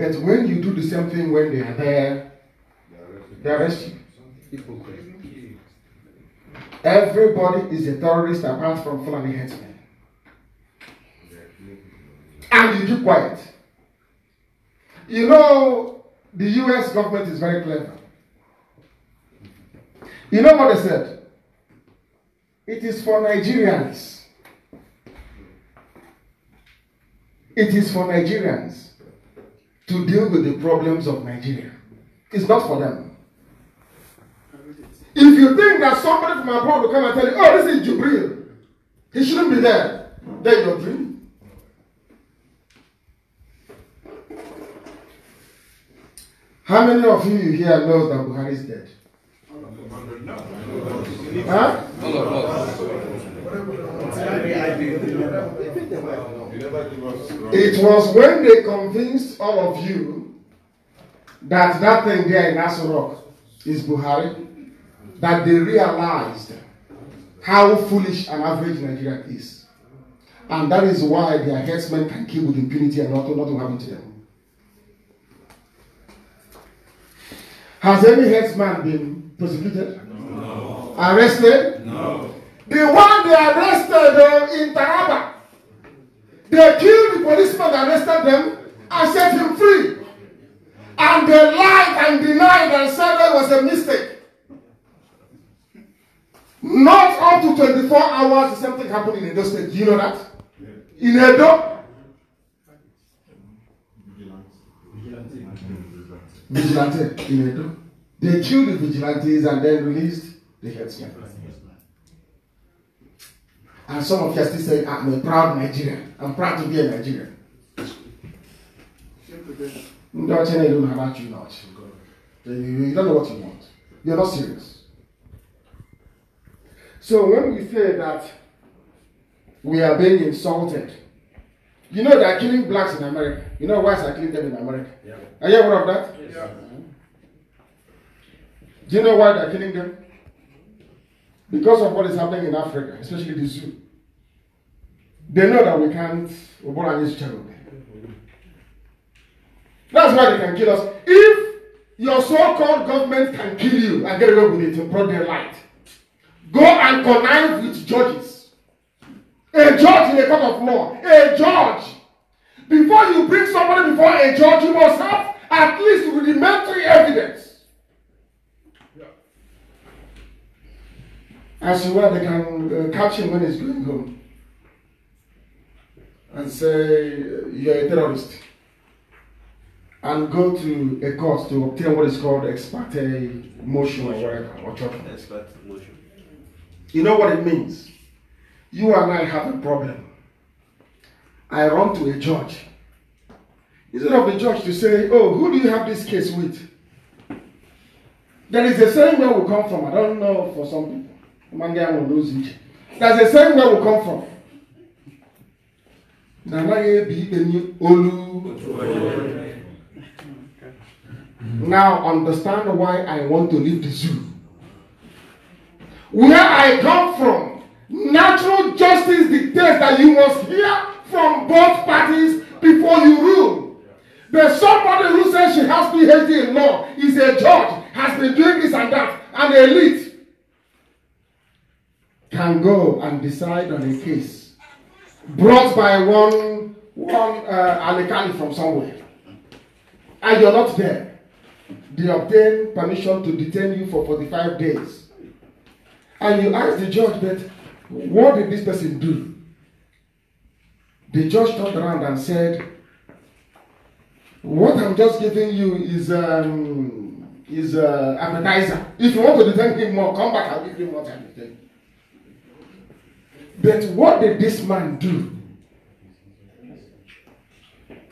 But when you do the same thing when they are there, they arrest you. Everybody is a terrorist apart from Fulani headsmen. And you keep quiet. You know, the US government is very clever. You know what they said? It is for Nigerians. It is for Nigerians to deal with the problems of Nigeria. It's not for them. If you think that somebody from abroad will come and tell you, oh, this is Jubril, he shouldn't be there, then you're dreaming. How many of you here knows that Buhari is dead? Huh? It was when they convinced all of you that that thing there in Asurok is Buhari that they realized how foolish an average Nigerian is. And that is why their headsmen can kill with impunity and nothing, nothing happened to them. Has any headsman been prosecuted? No. Arrested? No. The one they arrested uh, in Taraba they killed the policeman that arrested them and set him free. And they lied and denied and said that was a mistake. Not up to 24 hours, the same thing happened in Edo State. Do you know that? In Edo? Vigilante. In Edo. They killed the vigilantes and then released the headsman. And some of you are still saying, ah, I'm a proud Nigerian. I'm proud to be a Nigerian. Ndị ọcha na-eru about you not. You don't know what you want. You're not serious. So when we say that we are being insulted, you know they are killing blacks in America. You know whites are killing them in America. Yeah. Are you aware of that? Yes. Yeah. Do you know why they are killing them? because of what is happening in Africa, especially the zoo, they know that we can't That's why they can kill us. If your so-called government can kill you and get away with it in their light, go and connive with judges. A judge in a court of law, a judge. Before you bring somebody before a judge, you must have at least rudimentary evidence. As to where they can uh, catch him when he's going home and say, You're a terrorist, and go to a court to obtain what is called ex uh, motion or whatever, or motion. You know what it means? You and I have a problem. I run to a judge. Instead of the judge to say, Oh, who do you have this case with? There is a same where we come from. I don't know for some people. ma ndị ahụ n'ụzọ iche that's the same where we come from na anaghị ebi ikpe olu now understand why i want to leave the zoo where i come from natural justice dictates that you must hear from both parties before you rule There's somebody who says she has phd in law is a judge has been doing this and that and elite can go and decide on a case brought by one, one uh, from somewhere, and you're not there. They obtain permission to detain you for 45 days. And you ask the judge that, what did this person do? The judge turned around and said, what I'm just giving you is um, is uh, appetizer. If you want to detain him more, come back, I'll give you more time to detain but what did this man do?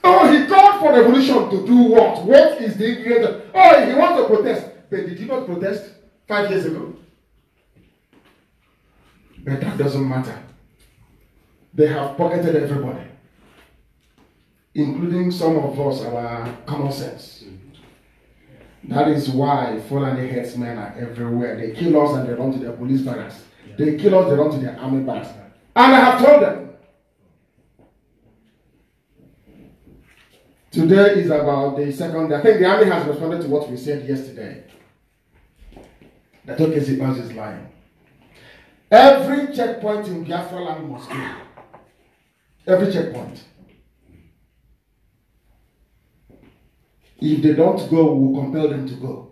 Oh, he called for revolution to do what? What is the ingredient? Oh, he wants to protest. But did he not protest five years ago? But that doesn't matter. They have pocketed everybody, including some of us, our common sense. That is why Fulani headsmen are everywhere. They kill us and they run to their police barracks. They kill us, they run to their army base. And I have told them. Today is about the second day. I think the army has responded to what we said yesterday. That okay, Zibaz is lying. Every checkpoint in Biafra land must go. Every checkpoint. If they don't go, we'll compel them to go.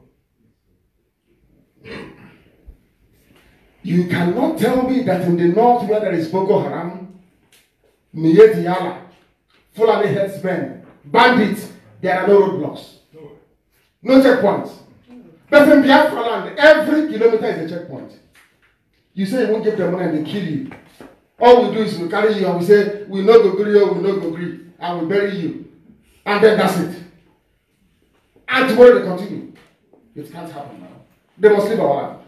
You cannot tell me that in the north where there is Boko Haram, Niyeti Yala, Fulani headsmen, bandits, there are no roadblocks. No checkpoints. But in Biafra land, every kilometer is a checkpoint. You say you won't give them money and they kill you. All we do is we carry you and we say, we no go you, oh, we no go agree, and we bury you. And then that's it. And tomorrow they continue. It can't happen now. They must leave our land.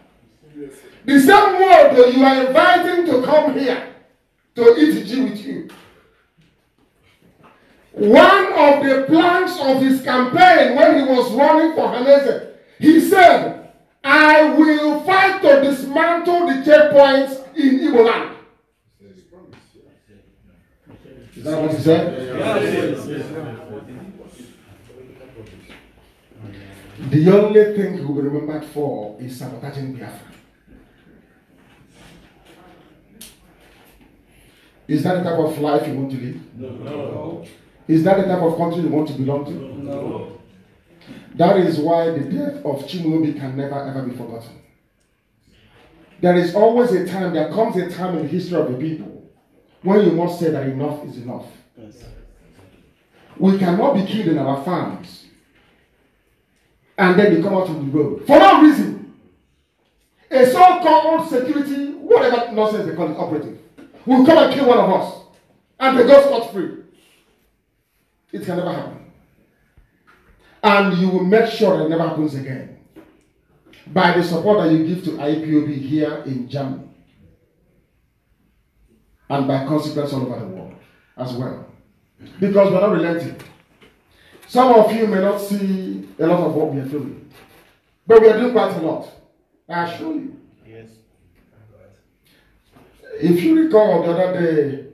the same world you are inviting to come here to eat G with you. One of the planks of his campaign when he was running for Hanese, he said, I will fight to dismantle the checkpoints in Igbo land. Is that what he said? Yes, yes, the only thing he will be remembered for is sabotaging Biafra. Is that the type of life you want to live? No. Is that the type of country you want to belong to? No. That is why the death of Chimulobi can never ever be forgotten. There is always a time, there comes a time in the history of the people when you must say that enough is enough. Yes. We cannot be killed in our farms and then they come out on the road for no reason. A so called security, whatever nonsense they call it, operative will come and kill one of us. And they go scot free. It can never happen. And you will make sure it never happens again by the support that you give to IPOB here in Germany and by consequence all over the world as well. Because we're not relenting. Some of you may not see a lot of what we are doing, but we are doing quite a lot. I assure you. If you recall the other day,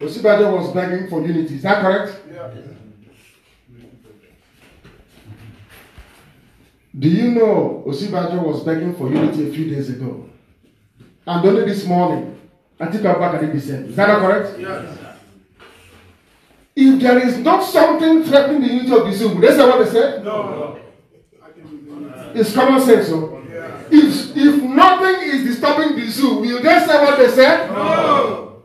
Osibade was begging for unity. Is that correct? Yeah. Do you know Osibade was begging for unity a few days ago? And only this morning, Atiku back did the same. Is that not correct? Yes. If there is not something threatening the unity of the zoo, that's they what they said? No. no. It's common sense, so. Oh. If, if nothing is disturbing the zoo, will they say what they said? No.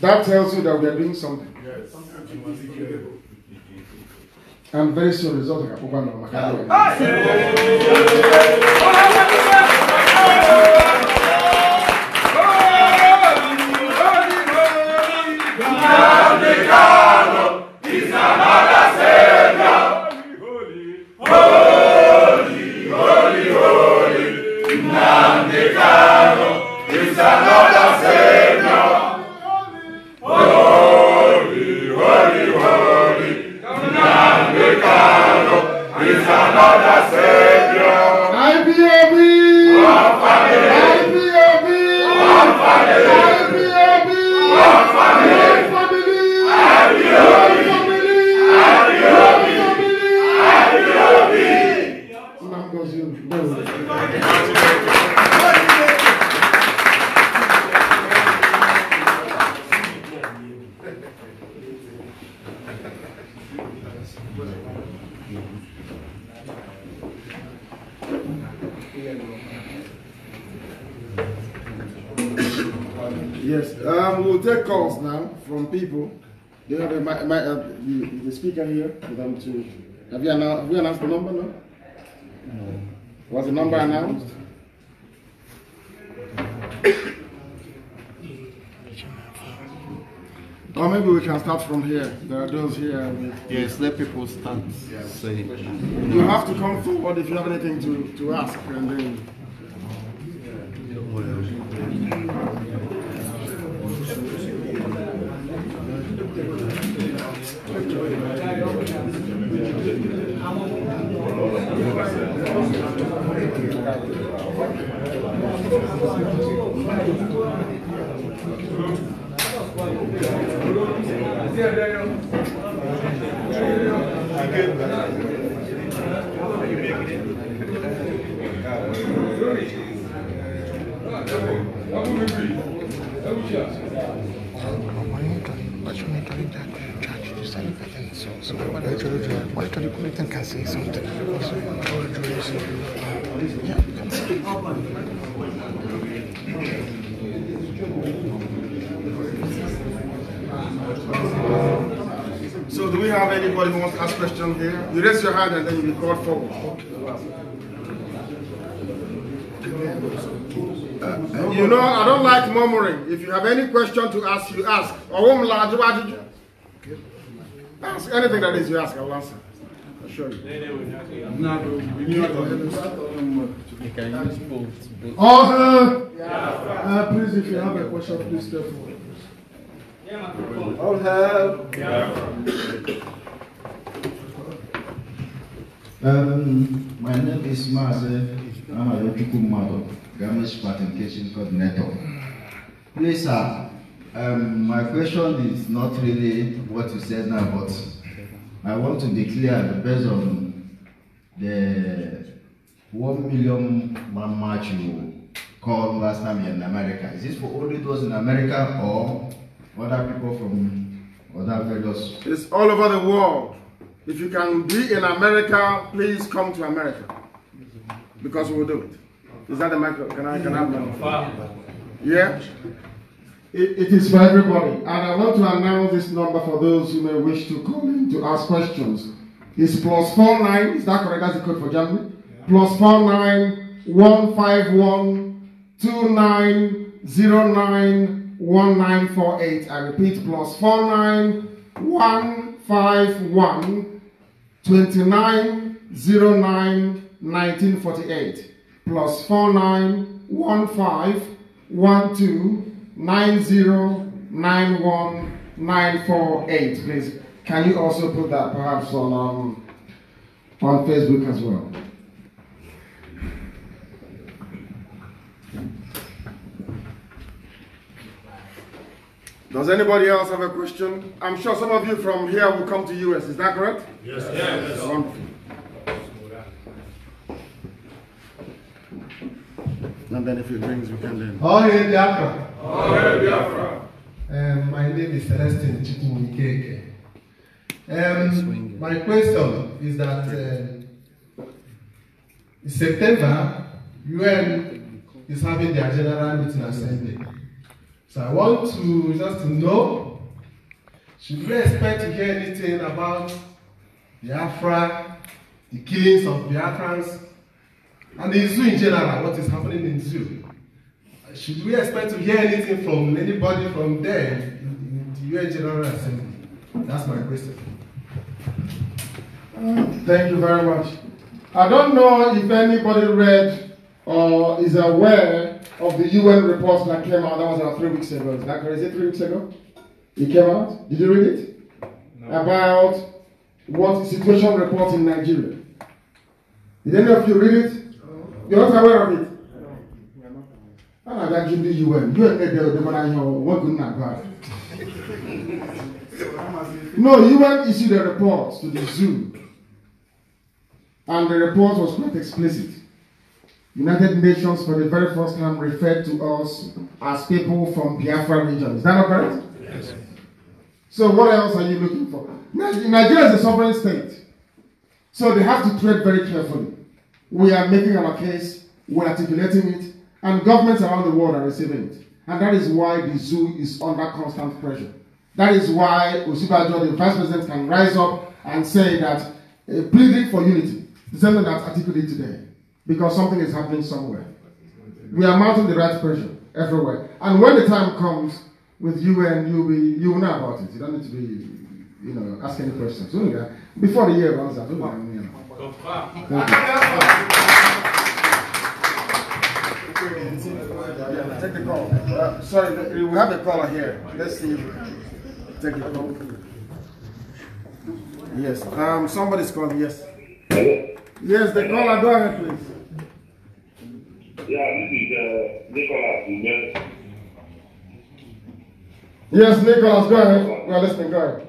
That tells you that we are doing something. Yes. And very soon results are open on IPOB! IPOB! IPOB! take calls now from people. Do you have my, my, uh, the, the speaker here for them to. Have you announced, have you announced the number? now? no. Was the number announced? Or maybe we can start from here. There are those here. yes, let people start Say You have to come forward if you have anything to, to ask, and then. I'm going to be. you can say something? So do we have anybody who wants to ask questions here? You raise your hand and then you be called forward. Uh, you know, I don't like murmuring. If you have any question to ask, you ask. Ask anything that is you ask, I will answer. I assure you. Oh, uh, yeah. uh, please, if you have a question, please step forward. I'll have. Um, my name is Maze Amayokukumado, Garment Participation Coordinator. Please, sir, um, my question is not really what you said now, but I want to declare based on the one million man march you called last time in America. Is this for only those in America or other people from other various? It's all over the world. If you can be in America, please come to America because we will do it. Is that the microphone? Can I can I have one? Yeah. It, it is for everybody. And I want to announce this number for those who may wish to call in to ask questions. It's plus plus four nine. is that correct? That's the code for Germany. Yeah. Plus 49 I repeat, plus plus four nine one five one two nine zero nine nineteen forty eight. Plus four nine one five one two. 9091948. Please, can you also put that perhaps on um, on Facebook as well? Does anybody else have a question? I'm sure some of you from here will come to US. Is that correct? Yes. yes. yes. and then if it rings, we can then. Oh, hey, Biafra. Oh, hey, Biafra. Um, my name is Celestine Chikumikeke. Um, my question is that uh, in September, UN is having their general meeting assembly. So I want to just to know, should we expect to hear anything about Biafra, the killings of Biafrans, and the zoo in general, what is happening in zoo? Should we expect to hear anything from anybody from there in the UN General Assembly? That's my question. Uh, thank you very much. I don't know if anybody read or is aware of the UN report that came out. That was about three weeks ago. Is that it three weeks ago? It came out. Did you read it? No. About what situation report in Nigeria. Did any of you read it? You're not aware of it. A na-abịa ji ndị UN, UN edere odemara ihe nwoke nna God. No, UN issued a report to the zoo. And the report was quite explicit. United Nations for the very first time referred to us as people from Biafra region. Is that not correct? Yes. So what else are you looking for? Nigeria is a sovereign state. So they have to tread very carefully. We are making our case, we're articulating it, and governments around the world are receiving it. And that is why the zoo is under constant pressure. That is why Osibajo, the vice president, can rise up and say that uh, pleading for unity, is something that's that today, because something is happening somewhere. We are mounting the right pressure everywhere. And when the time comes with UN, you'll be, you will know about it. You don't need to be, you know, ask any questions. Before the year runs out, take the call. sorry, we have a caller here. Let's see. Take the call. Yes. Um, somebody's calling. Yes. Yes, the caller. Go ahead, please. Yeah, this is uh, Nicholas. Yes, Nicholas. Go ahead. Well, listen. Go ahead.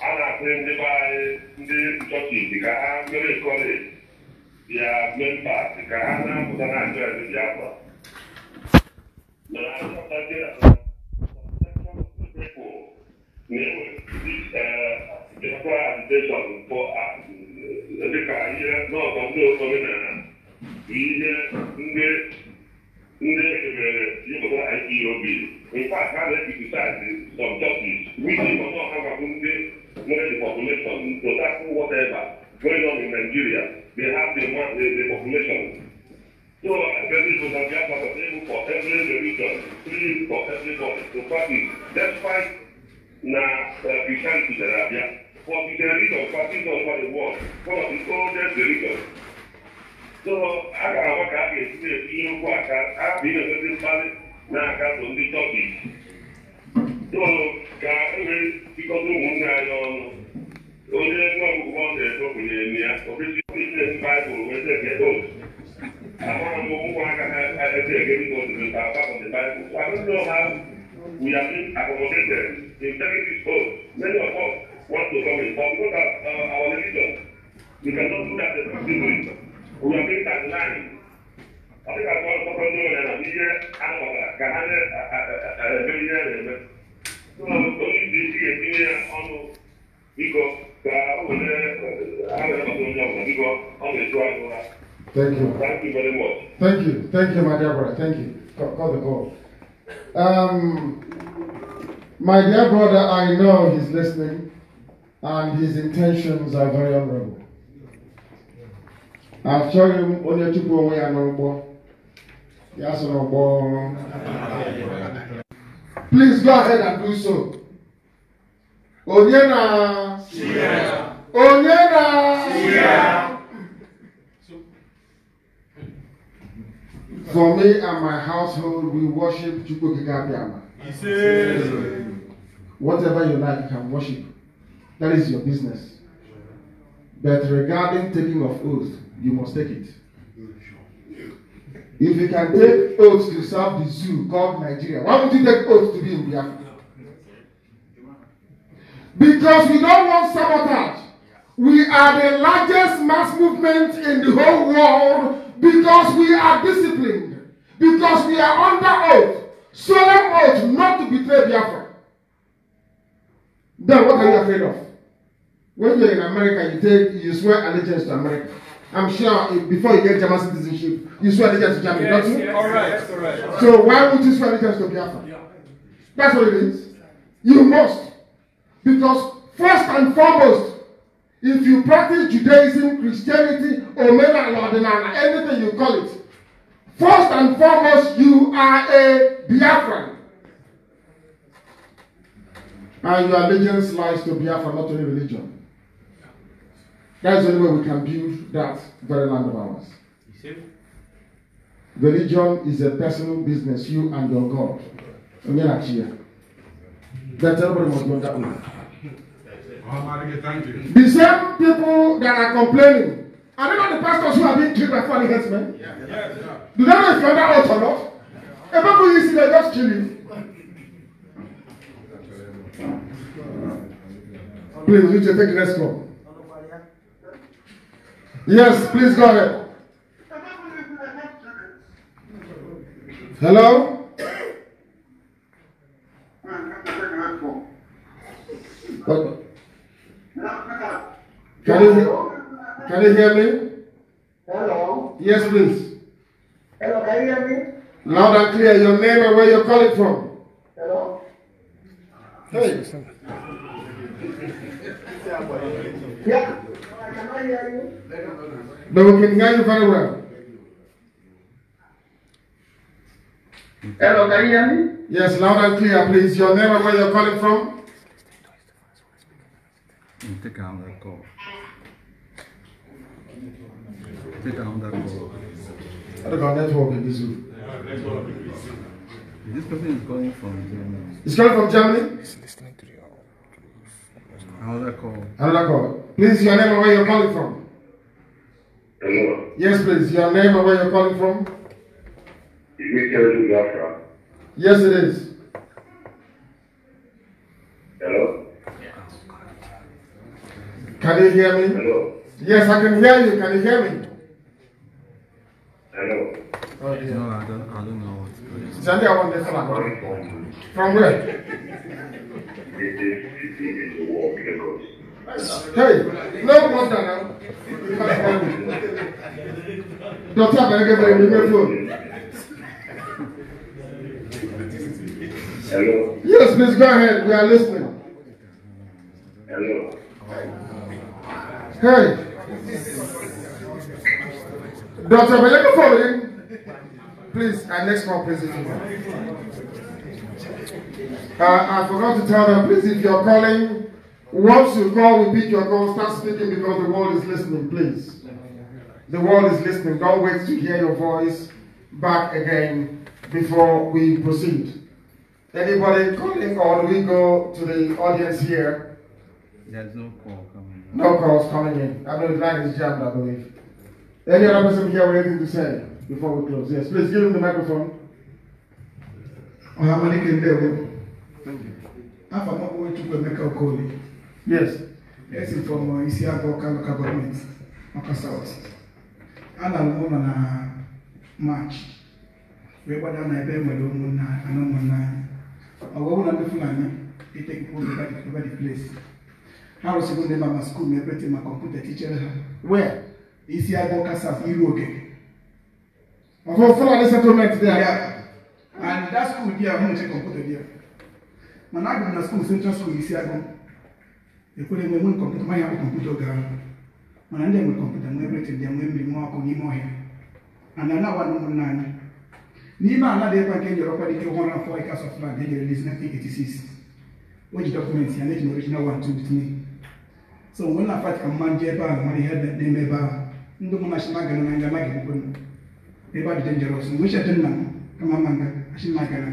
a na-asị ndị be anyị ndị nchọchiti ka ha mere kọleji bịa membat ka ha na amụta na ndị biafra dịka ihe n'ọzọ ndị omenala bụ ihe ndị ndị emere ịpụta ipob nke a ka na-ekritisaiz some churches ọzọ ha gwabụ ndị knowing the population, to whatever going on in Nigeria, they have the, the, the population. So uh, I tell you, we have available for every religion, free for everybody So to practice, despite na uh, Christianity that are there. For the religion, practice on for the world, one of the oldest religions. So I can a ga if you know what I can. I've been a very valid now. I can n'aka so ndị Turkish. So, ka enwere bikọta ụmụnne anyị ọnụ onye nwa akwụkwọ na-eto bụnyere nne ya ọbụzi ise baịbụl wee na-egedo amara m ụmụ aka ha eze egeri n'ozuru ka apart of the bible so i don't know how we have been accommodated in taking this many of us want to come in but because of our religion we cannot do that effectively we have been sidelined ọ dịka ọ tọrọ ndị nwere na ihe a nọbara ka ha na-eme ihe a na-eme Eh, Thank you. Thank you very much. Thank you. Thank you, my dear brother. Thank you. God the call. Um, my dear brother, I know he's listening and his intentions are very honorable. I'll shown him only two people we are no more. Yes, no more. Please go ahead and do so. Onyena. Shia. Onyena. Shia. For me and my household, we worship Chukwukikabiama. Whatever you like, you can worship. That is your business. But regarding taking of oath, you must take it. If you can take oath to serve the zoo called Nigeria, why would you take oath to be in Biafra? Because we don't want sabotage. We are the largest mass movement in the whole world because we are disciplined, because we are under oath, solemn oath not to betray Biafra. Then what are you afraid of? When you're in America, you take you swear allegiance to America. I'm sure before you get German citizenship, Israel agents to Germany, yes, not you? Yes, all right, all right. So why would Israel agents to Biafra? That's what it is. You must. Because first and foremost, if you practice Judaism, Christianity, or Mena Lordinana, anything you call it, first and foremost, you are a Biafran. And your allegiance lies to Biafra, not to any religion. That's the only way we can build that very land of ours. You see? Religion is a personal business, you and your God. That everybody must that The same people that are complaining are they not the pastors who are being killed by falling headsmen? Yeah. Yeah. Yeah. Do they know if you're that out or not? If people you see, they just kill you. Please, you take the next one. Yes, please go ahead. Hello? can you, can you hear me? Hello? Yes, please. Hello, can you hear me? Loud and clear, your name and where you're calling from. Hello? Hey. Yeah. But we can hear you very well. Hello, can you hear me? Yes, loud and clear, please. Your name and where you're calling from? Mm, take down that call. Take down that call. I don't got network in this room. This person is calling from Germany. He's calling from Germany? He's listening to the Another call. Another call. Please, your name and where you're calling from? Hello. Yes, please. Your name and where you're calling from? Is this terrorism Biafra? Yes, it is. Hello? Can you hear me? Hello? Yes, I can hear you. Can you hear me? Hello? Oh, yeah. No, I don't, I don't know what's Sandy, I want this one. From where? It is, it is war, Hey, no water now. You can't Doctor, I'm going to give you a phone. Hello. Yes, Miss Go We are listening. Hello. Hey. Dr. Beleka following. Please, our next one, please. Uh, I forgot to tell them, please, if you're calling, once you call, repeat your call, start speaking because the world is listening, please. The world is listening. Don't wait to hear your voice back again before we proceed. Anybody calling or do we go to the audience here? There's no call coming in. No calls coming in. I know the line is jammed, I believe. Any other person here with anything to say before we close? Yes, please give him the microphone. Mohammed Kendewe. Thank you. I'm from a call. Yes. Yes, from Isiago Local Government, Maka South. And I'm on a uh, march. We're going to be able to do Wawona Fulani, they take over the, over the place. I was even there my school, my brother, my computer teacher. Where? Is here Bokasas, Iroke. For Fulani settlement there? Yeah. And that school there, I'm going to computer there. My na school, Central School, is here go. They put them computer, my have a computer girl. Mana ndị nwere kọmputa nwee ebrete ndị nwee mmiri nwa ọkụ n'ime ọhịa. And now one ụmụnna anyị Ni maana det man kan göra på det kan man få i Casa Flag, det gör det 1986. Och det dokument jag lägger original one two three. So when I fight kan man ge ba man head that name ba. Ndo mna shima gana na ngama ke kun. They ba dangerous. Mo sha tinna kama manga ashin magana.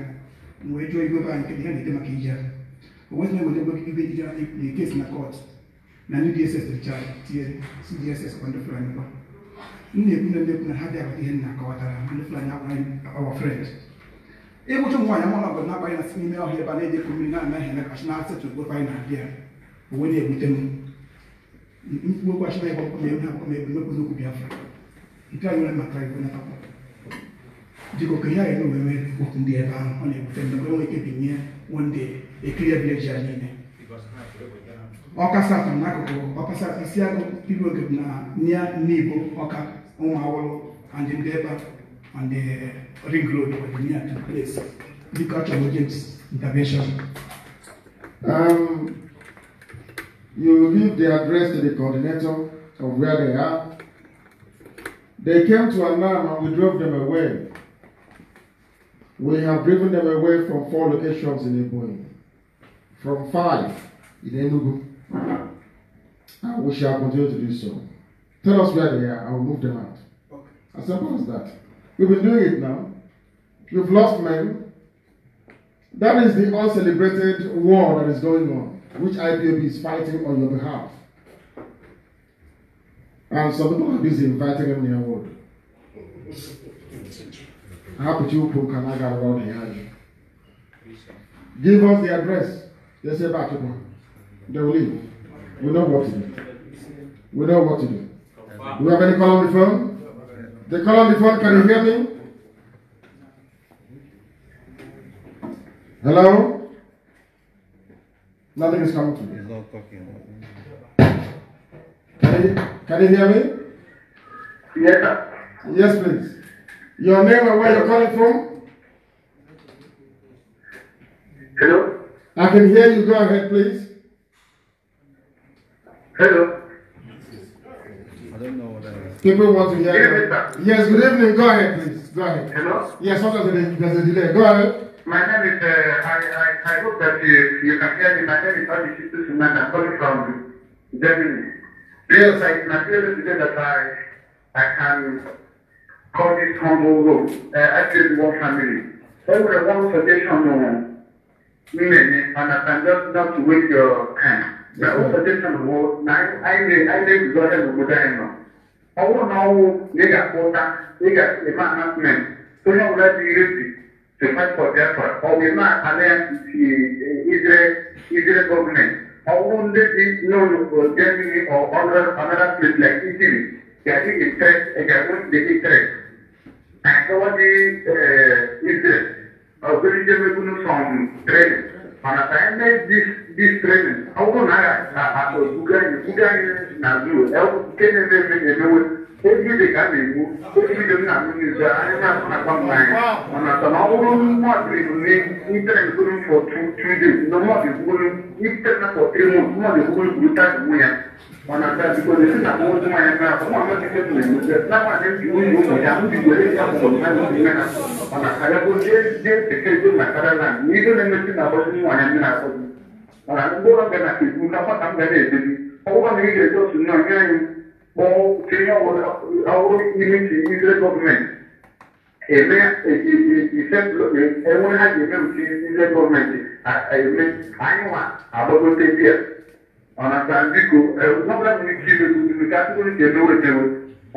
Mo ejo ibo ba nke dia de makija. What name will look ibe dia the case na court. Na ni DSS to charge. DSS on the front. na-ekwu na ha bịaghị ihe nna kọwatara our friend ịgwụcha ụmụ nwaanyị na-agbanye na si n'ime ọhịa ebe a na-edekọ mmiri na-anaghị emekachi na asịtụ gbe anyị na-abịa onwe na-ebute m mkpu okwu na ebe ọkpọ na-eme akpọ na ebe mekwu n'okwu Biafra nke anyị nwere maka na natakwa dịka okenye anyị na oweme okwu ndị ebe ahụ ọ na-ebute na nwere ike binye ekiri ya niile ọka satọ n'akụkụ ọka satọ isi agụ people group na near n'ibo ọka ụmụ awụrụ and the neighbor and the eh, ring road or the near to the place because of James intervention. Um, you give the address to the coordinator of where they are. They came to Anam and we drove them away. We have driven them away from four locations in Ebonyi, from five in Enugu, Ah, we shall continue to do so. Tell us where they are, I will move them out. Okay. As simple as that. We've been doing it now. We've lost men. That is the uncelebrated war that is going on, which IPOB is fighting on your behalf. And some people are busy inviting them near wood. How could you put Kanaga around here? Give us the address. They say back to them. They will leave. We know what to do. We know what to do. Do you have any call on the phone? The call on the phone, can you hear me? Hello? Nothing is coming to me. He's not talking. Can you, can you hear me? Yes, Yes, please. Your name and where you're calling from? Hello? I can hear you. Go ahead, please. Hello. I don't know what I People want to hear. Good evening, Yes, good evening. Go ahead, please. Go ahead. Hello? Yes, sometimes there's a delay. Go ahead. My name is, uh, I, I, I hope that you, you can hear me. My name is Abby Shitu I'm calling from Germany. Yes, I, it's my privilege today that I, I can call this humble room. Uh, I feel one family. Only one suggestion, uh, and I can just not wait your time. na o sɛ tɛsɛ no wo na ayi ne ayi ne bi dɔ sɛ no dan no ɔwɔ na ɔwɔ ne ga kota ne ga ema announcement to na wula di resi to fight for their part ɔwɔ ema alliance ti israel israel government ɔwɔ nde di no no germany or other another place like italy yàtí interest ẹ̀ka wọ́n di interest àti wọ́n di israel ọ̀gbẹ́ni jẹ́ mẹ́kúnnú sọ̀m training. mas Marataende this training. Ọgụ naira na akpa otu ganye, ganye na zuru. Ebe kene na-eme emewe. ejide ka a na-egbu ejide nna m n'izu anyị na-asụ na mmanya mana sana ọ bụrụ mmadụ ebune itere mkpụrụ for two two days na mmadụ ekwuru itere na for three months mmadụ ekwuru gwuta gwu ya mana ka bikoro esi na mụ ụmụ ya na afọ nwa amasị ke tụrụ egbu ya na nwaanyị ji nwunye ụmụ ya ndị were ya mụrụ na n'ime ha mana ka ya bụ jee jee teke ego na karala na ihe na-emesi na agbọzi nwaanyị ndị na-akpọzi mana mgbe ụlọ ga na-ekwu ka nwata m ga na-edebi ọgwụgwọ na ị ga-eje otu nna nye anyị tinye ọhụrụ ime ka izere gọọmenti eme enwe ha ji eme uche izere gọọmenti eme anyị nwa agbagote bịa ọnata biko ọbụla nwere ike imegbu ka atụrụ nke emewe emewe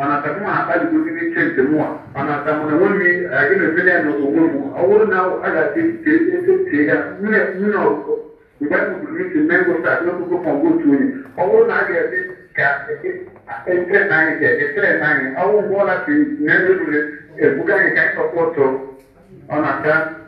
ọnata mụ akpaligozi n'ike nke mụwa ọnata na enweghị na-emele ya n'onwe m ọ bụrụ na a ga-adị etie ya nwunye ọkụkọ mgbe anyị na a entre anni, che tre anni, ho un buon attimo, nel buca che hai sopporto, ho una casa.